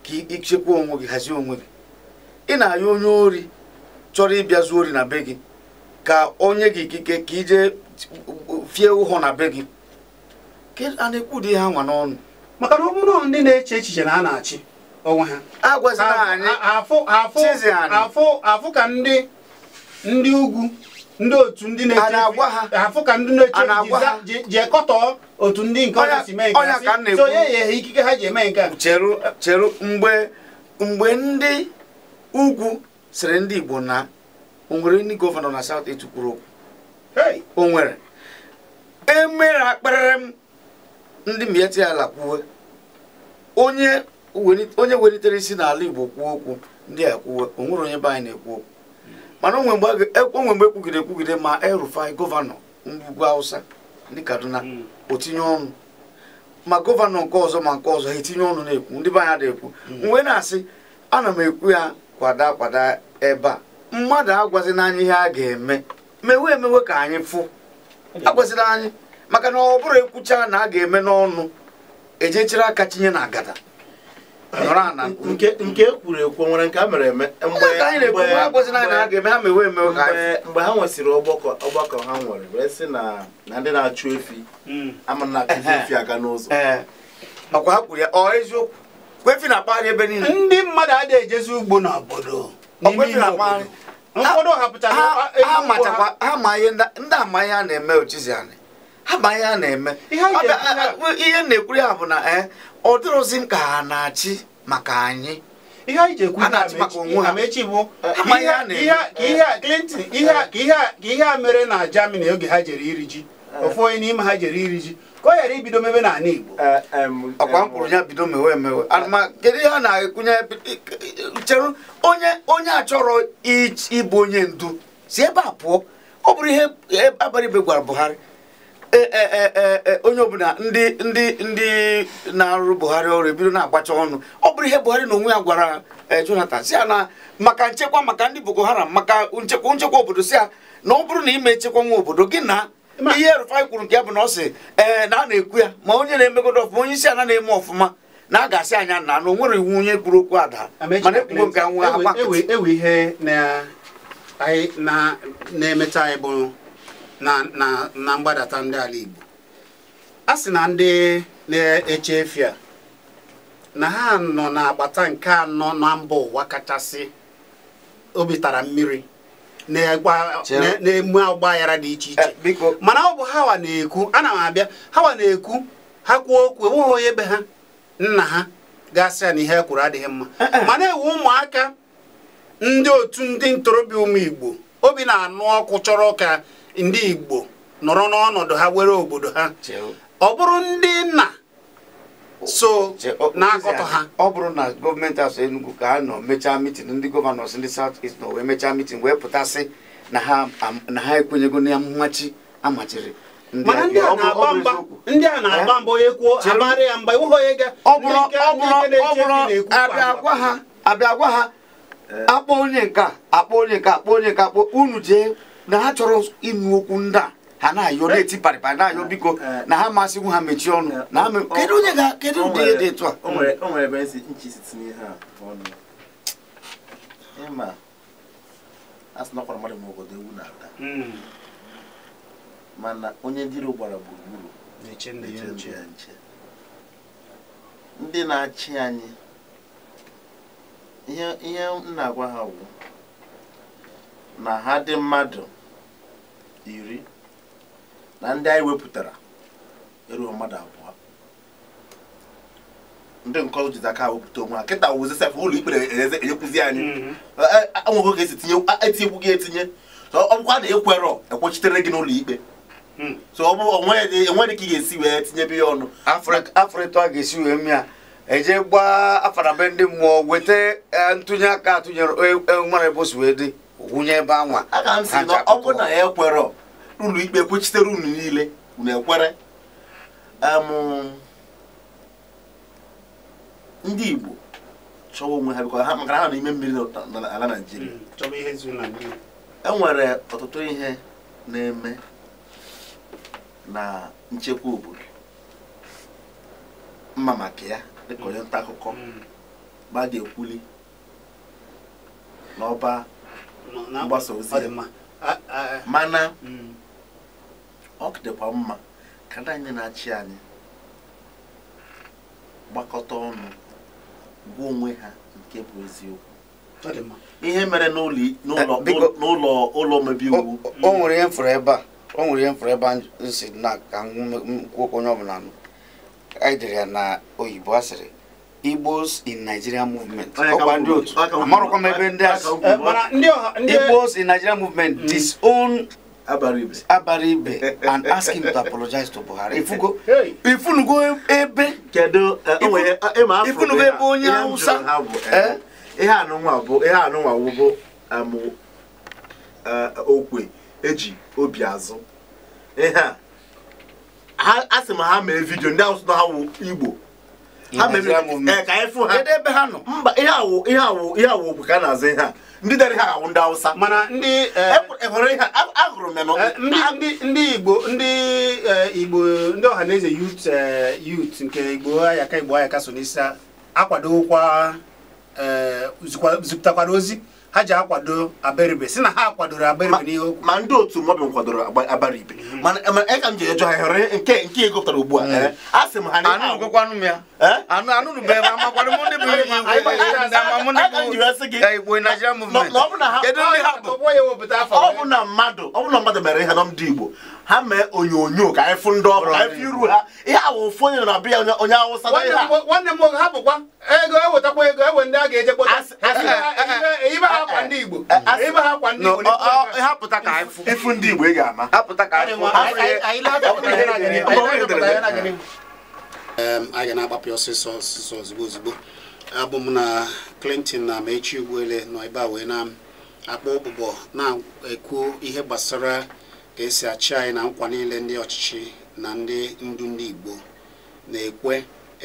ka ịchekwa onwe gị hazie onwe gị ị na-ayọ onye ori chọrọ ịbịa zuo ori na be gị ka onye gị ikike ka ije fie ụhọ na be gị a na-ekwu ụdị ha nwa n'ọnụ maka na ọ bụrụ ndị na-eche echiche na a na-achị onwe ha afụ ka ndị ndị ugwu ndị otu ndị na-eche afụ ka ndị na-eche ji ekọtọ otu ndị nke ọnya si mee nke so ya ye ikike ha ji eme nke a cheru mgbe mgbe ndị ugwu sịrị ndị igbo na o nwere ndị gọvanọ na south etu kwuru okwu o nwere emere akparịrị m ndị mieti ala kwuwe onye welitere isi n'ala Igbo kwuo okwu ndị a kwuwe onwere onye anyị na-ekwu okwu mana onwe mgbe ekwugide e ekwugide ma Erufai gọvanọ ugwu Awụsa, ndị Kaduna hmm. otinye ọnụ ma gọvanọ nke ọzọ ma nke ọzọ ha etinye ọnụ na-ekwu ndị be anyị na-ekwu hmm. mgbe na-asị ana m ekwu ya kwada kwada ebe a mmadụ agwazi n'anya ihe a ga-eme mewe emewe ka anyị fụ hmm. agwazila anyị maka na ọ bụrụ ekwucha na a ga-eme n'ọnụ ejechiri aka tinye na agada nke ekwuru e ekwu nwere nke a mere eme mgbe ha nwesịrị ọgbakọ ha nwere wee sị na na ndị na-achụ efi hmm. ama na eh, eh. efi aga n'ụzọ ọkwa eh. ha kwuru ya ọ eziokwu kwefi na akpagharị ebe niile ndị mmadụ adịghị ejezi ugbo n'obodo ha ma ihe ndị amaghị a na-eme ochizi anyị ama ya na-eme ihe na-ekwuri ya bụ na e, ọ dịrụzi m ka ha na-achị maka anyị ihe anyị ji ekwu amechi bụ ka ihe a mere na jamani oge ha jere iri ji eh. ofu onye n'ime ha jere iri ji ka ọ ghara ibido mebe n'ala Igbo eh, ọkwa mkpụrụ ya bido mewe emewe eh. kedu ihe a na-ekwunye cheru onye onye achọrọ ịbụ onye ndu si ebe a pụọ ọ bụrụ ihe e, abalị igwe gwara Buhari Eh, eh, eh, onye ọbụla ndị ndị ndị na-arụ Buhari ọrụ ebido na-agbacha ọnụ ọ bụrụ ihe Buhari na onwe ya gwara Jonathan si ya na maka nchekwa maka ndị Boko Haram maka nchekwa nchekwa obodo si ya na ọ bụrụ na ime nchekwa nwa obodo gị na ihe Rufai kwuru nke ya bụ na ọ sị ee na a na-ekwu ya ma onye na-emegodo ọfụma onye isi ala na-eme ọfụma na a ga-asị anya na na onwere nwere iwu onye kwuru okwu ada mana ekwugo nke nwa ihe na-emecha anyị bụ na mgbadata ndị ala Igbo a sị na ndị na-eche efi a na ha nọ n'agbata nke anọ na mba ụwa kachasị obi tara mmiri na-emu ọgba aghara dị iche iche eh, mana ọ bụ hawa na-ekwu ana m abịa hawa na-ekwu ha kwuo okwu enweghị onye ebe ha nna ha gasị ya na ihe kwuru adịghị mma eh, eh. mana ewu ụmụaka ndị otu ndị ntorobịa ụmụ Igbo obi na-anụ ọkụ chọrọ ka ndị Igbo nọrọ n'ọnọdụ ha were obodo ha ọ bụrụ ndị nna so na-akọtọ ha ọ bụrụ na gọọmenti asọ Enugu ka a nọ mechaa mitin ndị gọvanọs ndị South East nọ wee mechaa mitin wee pụtasị na ha ekwenyego na mmachi amachiri mana ndị a na-agba mba ndị a na-agba mba onye kwuo amarị ya mgba ịhụ onye ga-abịagwa ha abịagwa ha akpọ onye nke akpọ onye nke akpọ onye nke akpọ unu jee na ha chọrọ ịnụ okwu ndị a ha na-ayọ na-eti parịparị na-ayọ biko eh. Eh. na ha masịghị ha mechie ọnụ eh. na ha kedu onye ga kedu ụdị ihe dị etu a mana onye ndị iro gbara gburugburu ndị na-achị anyị ihe m na-agwa ha bụ na ha dị mmadụ iri na ndị anyị wepụtara erughị mmadụ abụọ ndị nke ọzọ jizi aka wepụta onwe ha kịta wụzi sef ụlọ ikpe enyekwuzi anyị mhm. e, e, anwụghị ka esi etinyekwu e gị etinye ọ bụkwa na ekwerọ ekwechitere gị n'ụlọ ikpe hmm. so ọ bụ onweghị ka ị ga-esi wee tinyebe ya ọnụ afrịtọ a ga-esi wee mịa eje gbaa afara be ndị mmụọ weta ntụnye aka atụnyere nwere ebosi wee dị wụnye ebe anwa aka m si na ọ bụ na ya ekwerọ ụlọ ikpe kwuchitere unu niile unu ekwere ndị Igbo chọwa onwe ha bịkwa ha maka ha n'ime mmiri n'ala naijiria enwere ọtụtụ ihe na-eme na nchekwa obodo mma maka ya dịka onye nta akụkọ ma hmm. a ga-ekwuli n'ọba mgbasa ozi mana hmm. ọ dịkwa mma ka ndị anyị na-achị anyị gbakọta ọnụ gwa onwe ha nke bụ eziokwu ihe mere n'ụlọ eh, ụlọ omebe iwu o nwere ihe mfụrụ ebe a o nwere ihe mfụrụ ebe a si na ka nkwụ onye ọbụla anyị ya na oyibo asịrị Igbos in Nigeria movement. Igbos in Nigeria movement mm. disown Abaribe. Abaribe and ask him to apologize to Buhari. Ifugo ifunugo ebe kedu eh, eh, ifunugo ebe onye Hausa. Eh, ihe anụnwa bụ ihe anụnwa wụgo amụ okwe eji obi azụ. Ihe a asị m ha mee vidio ndị Hausa na ha wụ Igbo Eh, ebe ha nọ mba ihe bụ ka a na-azụ ndị dere ha ndị mana ndị ndị igbo ndị eh, igbo ndị ọhaneze yut eh, yut nke igbo ayaka igbo ayaka so n'isi akwadokwa zipụtakwara ozi ha ji akwado abaribe si na ha akwadoro abaribe n'ihe okwu ma ndị otu nkwadoro kwadoro abaribe mm. mana eka m ji ejọ ha hụrụ nke nke egopụtara ugbu a mm. eh? a sị m ha anụgụkwanụ ya eh? anụ anụrụ bụ ebe amakwadụ mụ ndị bụ kedu ndị ha bụ ọ bụ na mmadụ ọ bụ na mmadụ mere ihe na ndị igbo ha mee onyonyo ka anyị fụ ndị ọkụ ka anyị iru ha ihe awụ ofu onye na be ya onye awụsa na nwanne m nwoke ha bụkwa ego ewetakwa ego ewe ndị a ga-eje kpọta ha kwa ndị Igbo ibe ha kwa ndị Igbo hapụta ka ịfụ ndị Igbo ị ga-ama hapụta ka anyị ga na-agbapụ ọsịsọ ọsịsọ ozugbo ozugbo abụ m na Clinton na Amaechi Ugwuele nọ ebe a wee na akpọ ụbụbọ na-ekwu ihe gbasara ka esi achị anyị na nkwa niile ndị ọchịchị na ndị ndu ndị Igbo na-ekwe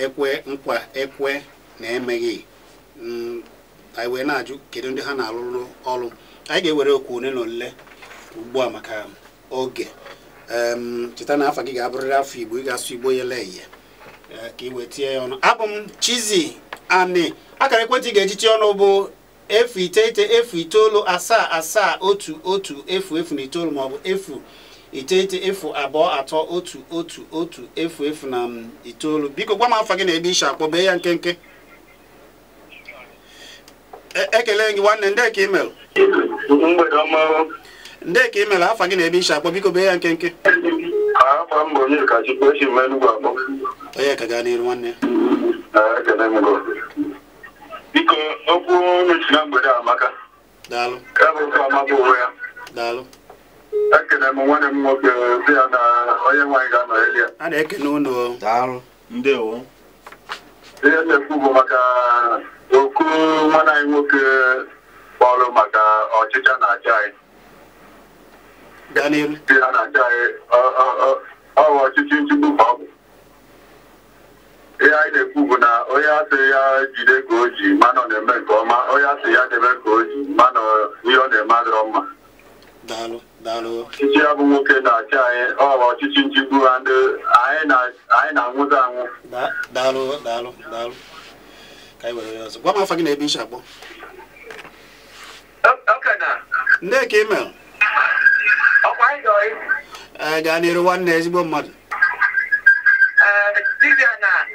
ekwe nkwa ekwe na-emeghị mm, anyị wee na-ajụ kedu ndị ha na-alụrụ ọrụ anyị ga-ewere okwu ole na ole ugbu a maka oge cheta na afọ gị ga-abụrịrị afọ Igbo ị ga-asụ Igbo yele ihe ka ị wee ya ọnụ abụ m chizi Ani akara ekwentị ga-eji tie ọnụ bụ efu iteghete efu itoolu asaa asaa otu otu efu efu na itoolu maọbụ efu iteghete efu abụọ atọ otu otu otu efu efu na mm, itoolu biko gwa m afọ gị na ebe ishi akpọ bee ya nkenke e, ekele gị nwanne nde ka imel nde ka imel afọ gị na ebe ishi akpọ biko bee ya nkenke onye ka gaa n'iru nwanne biko okwu onye si na mgbede amaka ya bụ ofe ya m nwanne m nwoke di ya na onye nwaanyị ga-anọgheli ya a na-ekene unu ndewo ihe na-ekwu bụ maka oku nwanne anyị nwoke kpọrọ maka ọchịcha na anyị ọchịchị nchigbu ọ ihe anyị na-ekwu bụ na onye asị ya jide ka o ji mana ọ na-eme nke ọma onye asị ya debe ka o ji mana ihe ọ na-eme adịrọ mma ọchịchị ya bụ nwoke na-achị anyị ọ bụ ọchịchị nchigbu ha ndị anyị na-anwụta anwụ gwa m afa gị na ebe iche akpọ nne ka ime gaa n'iru nwanne ezigbo mmadụ na.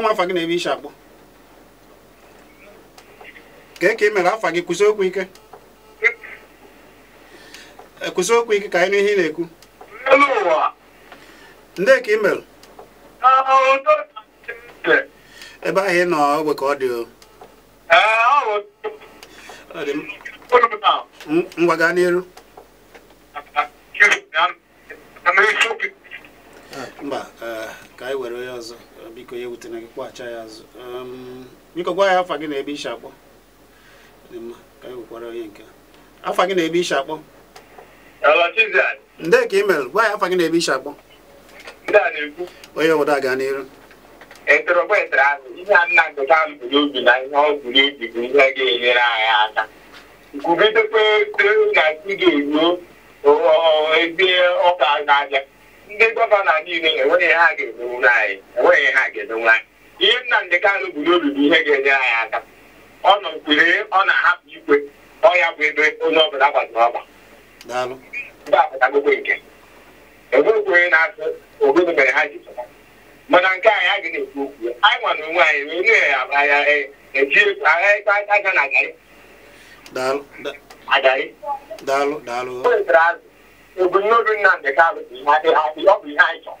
gwa m afa gị na ebe isi akpụ ka ka ị mere afa gị kwụsị okwu ike e, kwụsị okwu ike ka anyị nụ ihe ị na-ekwu ndị ka ị mere ebe ahụ ị nọ ogbe ka ọ dị o ngwa gaa n'iru biko gwa ya afa gị na ebe isi akpọ afa gị na ebe akpọ ndị ka imel gwa ya afa gị na ebe isi akpọ onye obodo ga n'iru ntorobetara e e ahụ ihe a nna nketa na ndị gọvanọ niile enweghị ha ga-emenwu anyị enweghị ha ga ihe nna Kanụ bụ n'obi bụ ihe ga-enye anyị aka ọ nọ kwere ọ na-ahapụ ikwe ọ ya bụ ebe onye ọbụla gbaziri ọgba enwekwere na-asụ obodo mere ha ji pụta mana nke anyị a ga na-ekwu okwu anyị nwa na onwe anyị wee nye ya aja e, e, e, na agarị agarị ebumnobi Nnamdị Kanụ ọ bụ ihe anyị chọrọ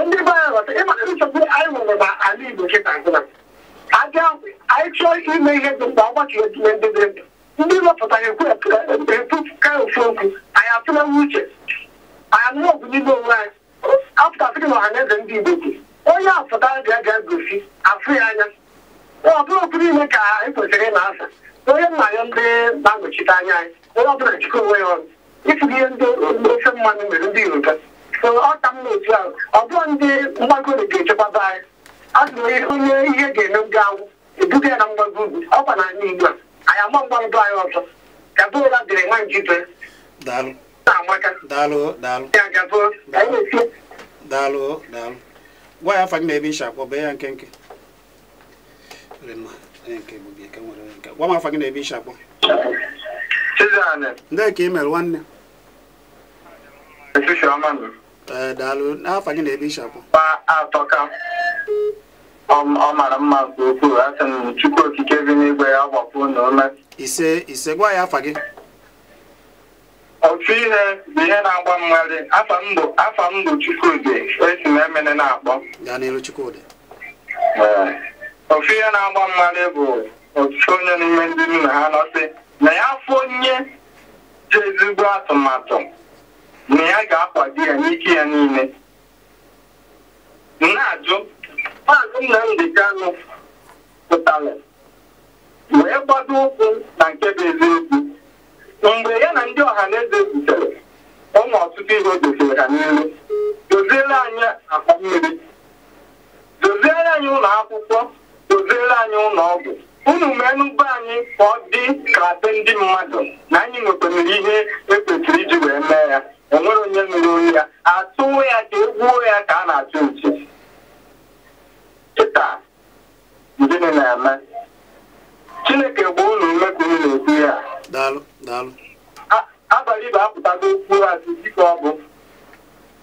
ndị be anyị ịmaka nsogbu anyị nwere na ala Igbo kịta nkụna abịa anyị chọọ ime ihe dị mkpa ọgbakọ etinye ndị dị ndụ ndị wepụta ekwu ka ofu okwu anyị atụlewe uche anyị anụrụ ọgwụ n'ime onwe anyị apụtasịrị na ọha ndị Igbo bụ onye apụta bịa bịa gosi afụ ya anya ọ bụrụ okwu niile ka anyị kwesịrị ịna asa onye nna ya ndị na-anọchite anya anyị onye ọbụla jikọ onwe ya ọrụ itighi ihe ndị ofe mmanụ mere ndị Yoruba so ọ ka m na ahụ ọ bụ ndị mgbago ga-echekwaba anyị azụrụ onye ihe ga-eme gawụ ebuga ya na mgbago ugwu ọkwa na ala igbo anyị ama mgbago anyị ọzọ gabụra dịrị nwa njibe na daalụ daalụ gwa ya na nsha akpọ bee ya nke. gwa m na akpọ ndị ka ị mere nwanne Ee, eh, daalụ n'afọ gị na-ebe ịchapụ atọka ọ mara mma nke ukwuu a sị m chukwu okike bi n'igwe ya gbapụ na ume ise ise gwa ya afa gị Otu ihe bụ ihe na-agba mmadụ afa m bụ afa m bụ chukwudi esi m emene na-akpọ ya n'iru chukwudi eh, ofu ihe na-agba mmadụ bụ otu onye n'ime ndị nna ha nọsị na ya afọ onye ji ezigbo atụmatụ na ya ga-akwado ya n'ike ya niile na-ajụ maazị Nnamdị anụ pụtara wee gbado ụkwụ na nke bụ eziokwu mgbe ya na ndị ọha na eze zutere ụmụ ọtụtụ ihe o ha n'elu doziere anyị akpa mmiri doziere anyị ụlọ akwụkwọ doziere anyị ụlọ ọgwụ unu menụba anyị ka ọ dị ka be ndị mmadụ na anyị nwekwanere ihe ekwesịrị iji wee mee ya onwere onye mere onye ya atụwo ya ka egwuo ya ka a na-atụ uche kịta gịnị na-eme chineke gbaa unu ume ka unu na-ekwu ya abalị bụ apụtago okwu azụ dịka ọ bụ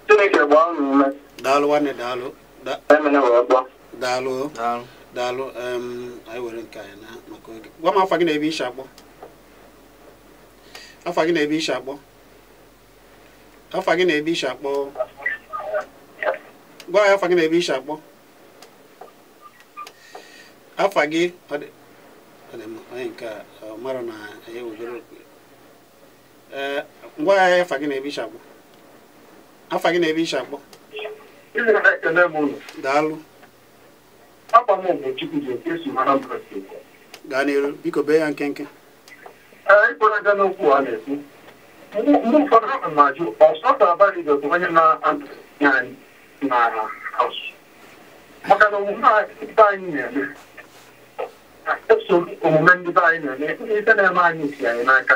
chineke gbaa unu ume daalụ nwanne daalụ daalụ daalụ anyị were nke anyị na maka oge gwa m afa gị na ebi isi akpọ afa gị na ebi isi akpọ afa gị na ebi isi akpọ gwa ya afa gị na ebi isi akpọ afa gị ọ dị mma onye nke ọ mara na anyị wegoro ee ngwa ya afa gị na ebi isi akpọ afa gị na ebe isi akpọ daalụ akwa m mgbe chukwu ji eke si mara gaa n'iru biko bee ya nkenke Ee, aga n'okwu a na-ekwu mgbe ụfọdụ ahụ na-ajụ ọsọ ga-abalị dị onye na-adị n'ala asụ maka na omume ndị anyị na-eme eso omume ndị be anyị na-eme ndị ike na-eme anyị si anyị n'aka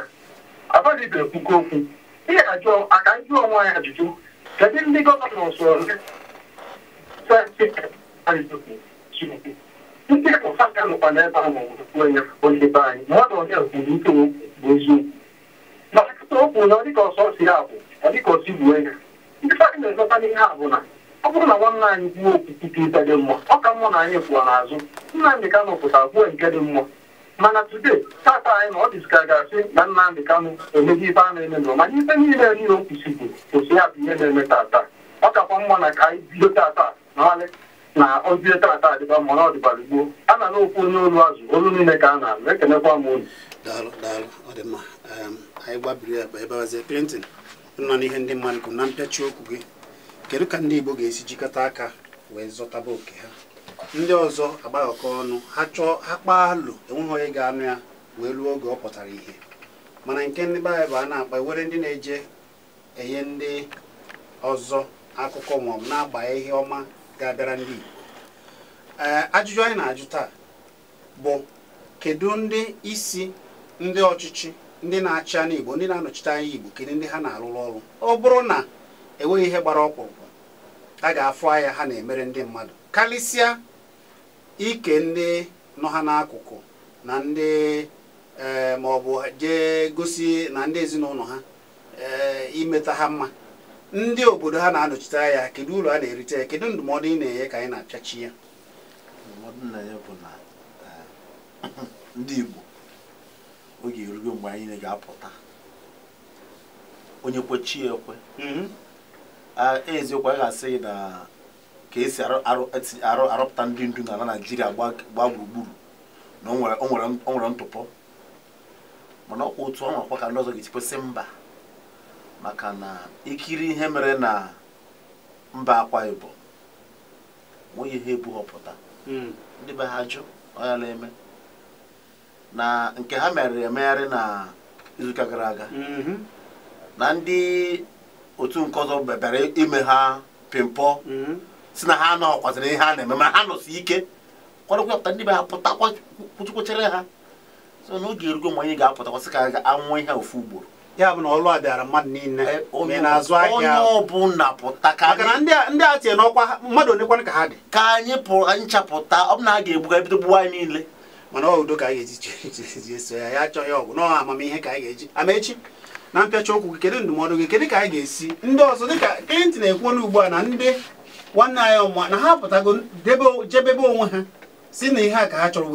abalị bụ okwu, okwu ihe ajụ aka jụọ onwe anyị ajụjụ kedu ndị gọvanọ ndị sọ ole Chineke ndị ụfaka nọkwa n'ebe ahụ onye ebe anyị na ọ onye kwuru ike bụ eziokwu na ọtụtụ okwu na ọdịka ọsọ si ya bụ ọdịka ya ndị faka na-ezọta n'ihe a na ọ bụrụ na nwanne anyị kwuo okwu dị mma ọ ka mma na anyị kwuo n'azụ Nnamdị pụta nke dị mma mana tata anyị na ọ dịzika asị na ife a na-eme nọ ife niile niile bụ ya ihe na-eme tata ọ kakwa mma na ka anyị bido na ozi tata adịba mmanụ ọdịbara gboo a na n'okwu onye olu azụ olu niile ka a na-alụ ekenekwa m unu daalụ daalụ anyị gbabiri akpa ebewazie Clinton nọ n'ihe ndị mmadụ kwuru na mpịachi okwu gị kedu ka ndị Igbo ga-esi jikọta aka wee zọtaba oke ha ndị ọzọ agbaghọkọ ọnụ ha chọọ ha kpaa alụ enweghị onye ga-anụ ya wee ruo oge ọ pụtara ihe mana nke ndị baịbụl anyị bụ a na-akpa e were ndị na-eje enye ndị ọzọ akụkọ maọbụ na-agba ihe ọma ga-abịara ndị Igbo eh, ajụjụ anyị na-ajụ taa bụ kedu ndị isi ndị ọchịchị ndị na-achị anya Igbo ndị na-anọchite anya Igbo kedu ndị ha na-arụrụ ọrụ ọ bụrụ na enweghị ihe gbara ọkpụrụkpụ a ga-afụ anya ha na-emere ndị mmadụ karịsịa ike ndị nọ ha n'akụkụ na ndị eh, ma ọ bụ jee gosi na ndị ezinụlọ ha eh, imeta ha mma ndị obodo ha na-anọchite ya kedu ụlọ a na-erite ya kedu ndụmọdụ ị na-enye ka anyị na-achachi ya ndụmọdụ bụ eh, ndị Igbo oge erugo mgbe anyị ga-apụta onye kwechi ekwe mm-hmm. eziokwu a ga-asị gị na ka esi arụpụta ndị ndu n'ala Naịjirịa gbaa gburugburu na o nwere ntụpọ mana ọkwa otu ọ nwakwa ka ndị ọzọ ga-etikwesị mba maka na ikiri ihe mere na mba akwa ibom nweghị ihe ebughọpụta hmm. ndị be ha jụ ọyala eme na nke ha mere emegharị na izuụka gara aga mm-hmm. na ndị otu nke ọzọ bebere ime ha pimpọ mm-hmm. si na ha anọghọkwazịrị ihe a na-eme ma ha nọsi ike kwadokwa ndị be ha pụta ha so na oge erugo mgbe anyị ga-apụtakwasị ka ga-anwụ ihe ofu ugboro ya bụ na ọlụ a bịara mmadụ niile eh, onye na-azụ ahịa onye ọbụla pụta ka maka na ndị a tinye n'ọkwa mmadụ onekwana ka ha dị ka anyị pụrụ anyị chapụta ọ bụ na a ga-egbuga ebido gbuwa anyị niile mana ọ udo ka anyị ga-eji eso ya ya achọ ya ọgwụ amamihe ka anyị ga-eji amaechi na mpịacha okwu gị kedu ndụmọdụ gị kedu ka anyị ga-esi ndị ọzọ dịka klint na-ekwu ugbu a na ndị nwanne anyị ọmụma na ha pụtago jebebe onwe ha si na ihe a ka ha chọrọ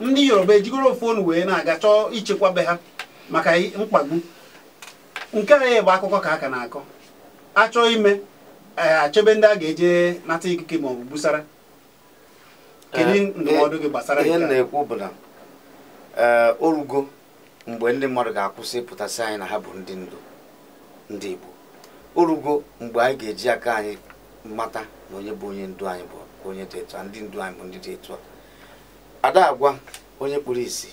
wee yoruba ejigoro wee na-aga chọọ ha maka mkpagbu nke a bụ akụkọ ka aka na-akọ achọ ime e, achọbe ndị a ga-eje nata ikike ma ọ bụ gbusara kedu eh, ndụmọdụ gị gbasara ihe na-ekwu bụ na e, orugo mgbe ndị mmadụ ga-akwụsị ịpụtasị anyị na ha bụ ndị ndu ndị Igbo orugo mgbe anyị ga-eji aka anyị mata na onye bụ onye ndu anyị bụ onye dị etu a ndị ndu anyị bụ ndị dị etu a ada agwa onye kpuru isi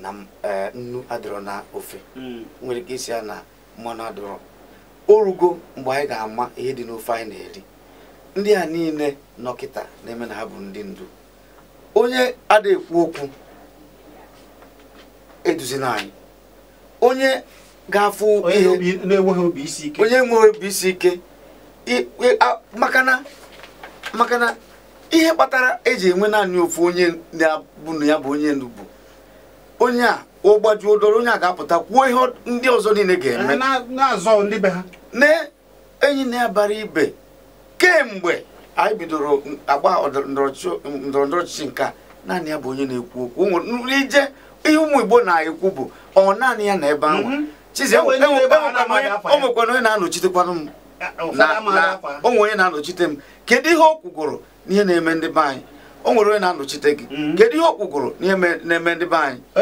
na eh, nnu adọrọ na ofe mm. nwere ike isi ya na mmanụ adọrọ o rugo mgbe anyị ga-ama ihe dị n'ofe anyị na-eri ndị a niile nọkịta na-eme na ha bụ ndị ndu onye ada-ekwu okwu eduzina anyị onye ga-afụ ihe na-enweghị obi isi ike onye na obi isi ike makana ihe kpatara eji enwe naanị ofu onye na-abụ ya bụ onye ndu bụ onye a ụgbaji odoro onye a ga-apụta kwuo ihe ndị ọzọ niile ga-eme na-azọ ndị ha na-enyi na-abara ibe kemgbe anyị bidoro agba ndọrọndọrọ ọchịchị nke naanị ya bụ onye na-ekwu okwu ije ihe ụmụ Igbo na-ekwu bụ ọ naanị ya na ebe ahụ mhm. o onye na-anọchitekwanụ m onwe onye na-anọchite m kedu ihe o kwugoro n'ihe na-eme ndị be anyị o nwere onye na-anọchite gị mm-hmm. kedu ihe okwugoro na-eme ndị be anyị na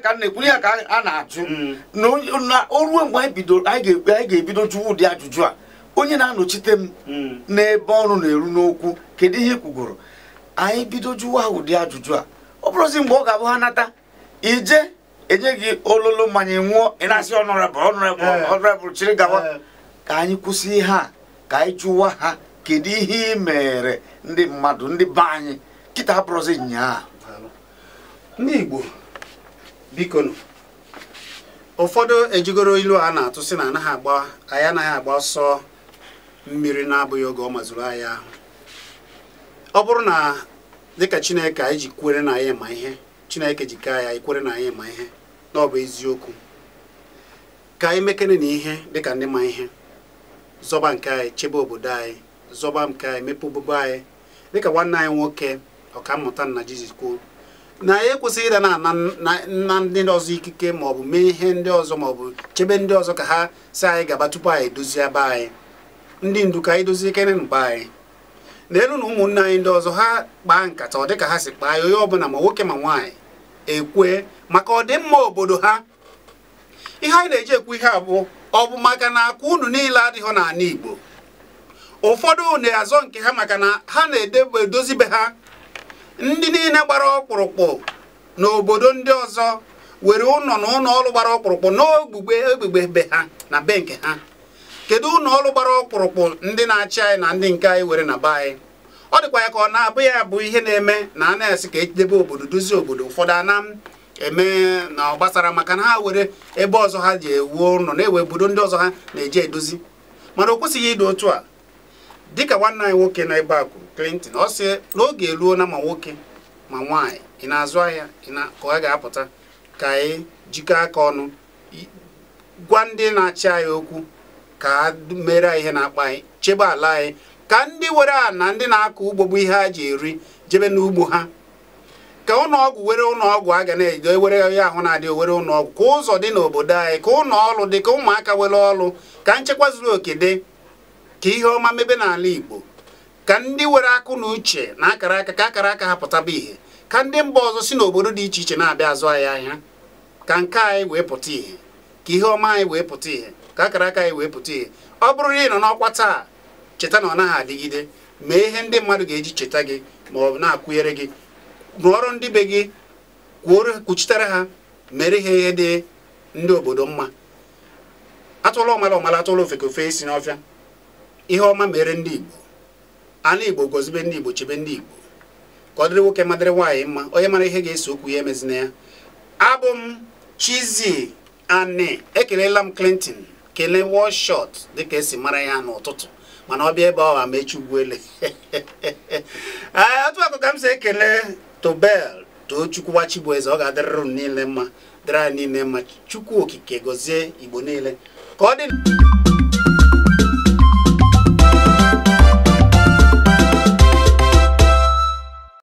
ka na-ekwu ya ka a na-ajụ mm. na o mgbe anyị ga-ebido jụwa ụdị ajụjụ a onye na-anọchite m mm. n'ebe ọrụ na-eru n'okwu kedu ihe kwugoro anyị bido jụwa ụdị ajụjụ a ọ bụrụzi mgbe ọ ga-abụ ha nata ije enye gị ololo mmanya nwụọ ị na-asị ọnụrabụl eh. chiri gawa eh. ka anyị kwụsị ihe a ka anyị jụwa ha kedu ihe ị mere ndị mmadụ ndị be anyị kịta abụrụzi nnyaa ndị Igbo biko ụfọdụ ejigoro ilu a na-atụ sị na anaghị agba anyị anaghị agba ọsọ mmiri na-abụghị oge ọ mazuru anyị ahụ ọ bụrụ na dịka Chineke anyị ji kwere na anyị ma ihe Chineke ji ka ya ikwere na anyị ma ihe na ọ bụ eziokwu ka anyị mekene na ihe dịka ndị ma ihe zọba nke anyị chebe obodo anyị zọba nke anyị mepe obobo anyị dịka nwanne anyị nwoke ọkammụta nna Jizọs kwuo na anyị e ekwesịghị ịda na nna ndị ọzọ ikike maọbụ mee ihe ndị ọzọ maọbụ chebe ndị ọzọ ka ha si anyị gaba tupu anyị edozi be anyị ndị ndu ka anyị dozie ikere mgbe anyị n'elu na ụmụnne anyị ndị ọzọ ha kpaa nkata ọ dịka ha si kpaa ya onye ọbụla ma nwoke ma nwaanyị ekwe maka ọdịmma obodo ha ihe anyị na-eji ekwu ihe bụ ọ bụ maka na akụ unu niile adịghị n'ala Igbo ụfọdụ na-azọ nke ha maka na ha na edozi be ha ndị niile gbara ọkpụrụkpụ n'obodo ndị ọzọ were ụlọ na ụlọ ọrụ gbara ọkpụrụkpụ n'ogbugbe egbugbe be ha na be nke ha kedu ụlọ ọrụ gbara ọkpụrụkpụ ndị na-achị anyị na ndị nke anyị were na be anyị ọ dịkwa ya ka ọ na-abụ ya bụ ihe na-eme na a na-esi ka edebe obodo dozie obodo ụfọdụ ana eme na ọ gbasara maka na ha were ebe ọzọ ha ji ewuo ụlọ na-ewe obodo ndị ọzọ ha na eje edozi mana o kwesịghị ịdị otu a dịka nwanne anyị nwoke na ebe a kwuru Clinton ọ sị n'oge eruo na ma nwoke ma nwaanyị ị na-azụ ahịa ka ọ ga-apụta ka anyị jikọ aka ọnụ gwa ndị na-achị anyị okwu ka ha mere ihe na-akpa anyị chebe ala anyị ka ndị were a na ndị na-akọ ugbo bụ ihe ha ji eri jebe n'ugbo ha ka ụlọọgwụ were ụlọọgwụ a ga na-ejido were onye ahụ na-adị owere ụlọọgwụ ka ụzọ dị n'obodo anyị ka ụlọ ọrụ dị ka ụmụaka were ọrụ ka nchekwa zuru oke dị ka ihe ọma mebe n'ala Igbo ka ndị were akụ na uche na akara aka ka akara aka ha pụtaba ihe ka ndị mba ọzọ si n'obodo dị iche iche na-abịa azụ anyị ahịa ka nke anyị wee pụta ihe ka ihe ọma anyị wee pụta ihe ka akara aka anyị wee pụta ihe ọ bụrụ na ị nọ n'ọkwa taa cheta na ọ naghị adịgide mee ihe ndị mmadụ ga-eji cheta gị ma ọ bụ na-akwụnyere gị rụọrụ ndị be gị kwuoro kwuchitere ha mere ha ihe dị ndị obodo mma atụla ọmala ọmala atụla ofeke ofe esi n'ọfịa ihe ọma mere ndị Igbo ala Igbo gozibe ndị Igbo chebe ndị Igbo ka ọ dịrị nwoke madịrị nwaanyị mma onye mara ihe ga-eso okwu ya emezina ya abụ m Chizzy Ani ekelela m Clinton kelee Wallshot dịka esi mara ya n'ụtụtụ mana ọ bịa ebe ọ amechi ugwuele otu akụ ka m si ekele Tobel Tochukwu eze ọ ga-adịrịrụ m niile mma dịrị anyị niile mma Chukwu okike gozie Igbo niile ka ọ dị